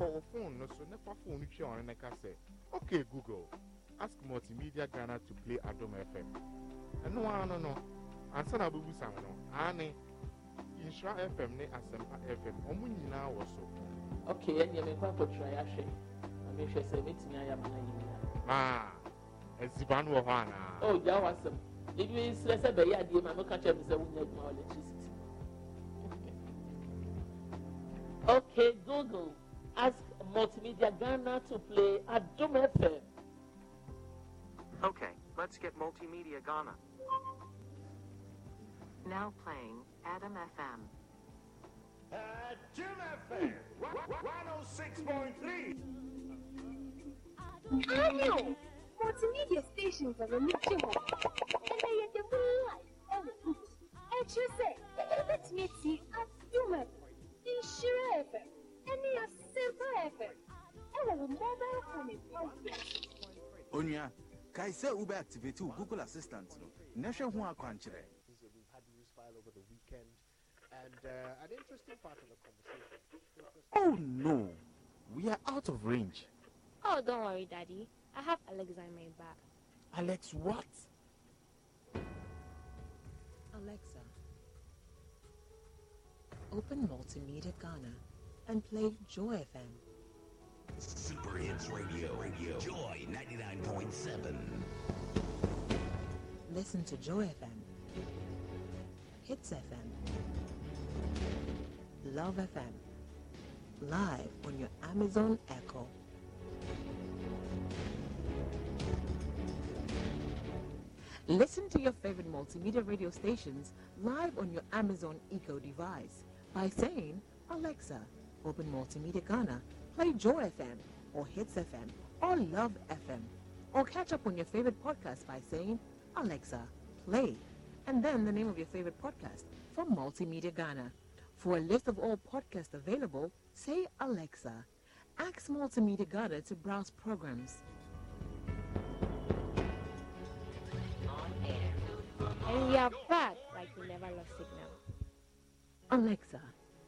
kɔɔ phone no so nefa phone no twɛ ɔne ne okay google ask multimedia ghana to play adom fm ɛno ara no no ansa na abɛbusam no aane nhyira fm ne asɛmpa fm ɔmo nyinaa wɔ so okay ɛneɛ mekɔ akɔtwerɛ yɛahwɛ na mehwɛ sɛ mɛtumi ayɛ amana yi nyinaa maa aziba no wɔ hɔ anaa o gya wɔ asɛm ebi srɛ sɛ bɛyɛ adeɛ ma meka kyerɛ me sɛ wonya adwuma electricity okay google ask Multimedia Ghana to play at Doom FM. Okay, let's get Multimedia Ghana. Now playing Adam FM. Uh, Doom FM 106.3. Radio! Multimedia stations are a mixture of. And they are the real life and food. And you say, let me see at human FM, Insure FM, and forever. I will never find it Onya, kai se ube activate Google Assistant Nasha hu We've had news file over the weekend and uh, an interesting part of the conversation. Oh no. We are out of range. Oh, don't worry, Daddy. I have Alexa in my back. Alex, what? Alexa, open Multimedia Ghana and play Joy FM. Super Hits Radio, Radio, Joy 99.7. Listen to Joy FM, Hits FM, Love FM, live on your Amazon Echo. Listen to your favorite multimedia radio stations live on your Amazon Echo device by saying, Alexa, Open Multimedia Ghana, play Joy FM or Hits FM or Love FM or catch up on your favorite podcast by saying, Alexa, play, and then the name of your favorite podcast from Multimedia Ghana. For a list of all podcasts available, say Alexa. Ask Multimedia Ghana to browse programs. And we are back like we never lost signal. Alexa,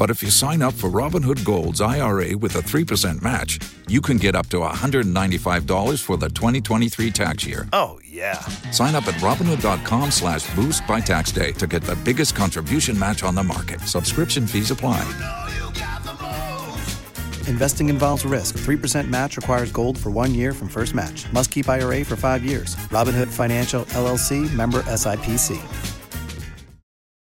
But if you sign up for Robinhood Gold's IRA with a 3% match, you can get up to $195 for the 2023 tax year. Oh, yeah. Sign up at Robinhood.com slash boost by tax day to get the biggest contribution match on the market. Subscription fees apply. You know you Investing involves risk. 3% match requires gold for one year from first match. Must keep IRA for five years. Robinhood Financial, LLC, member SIPC.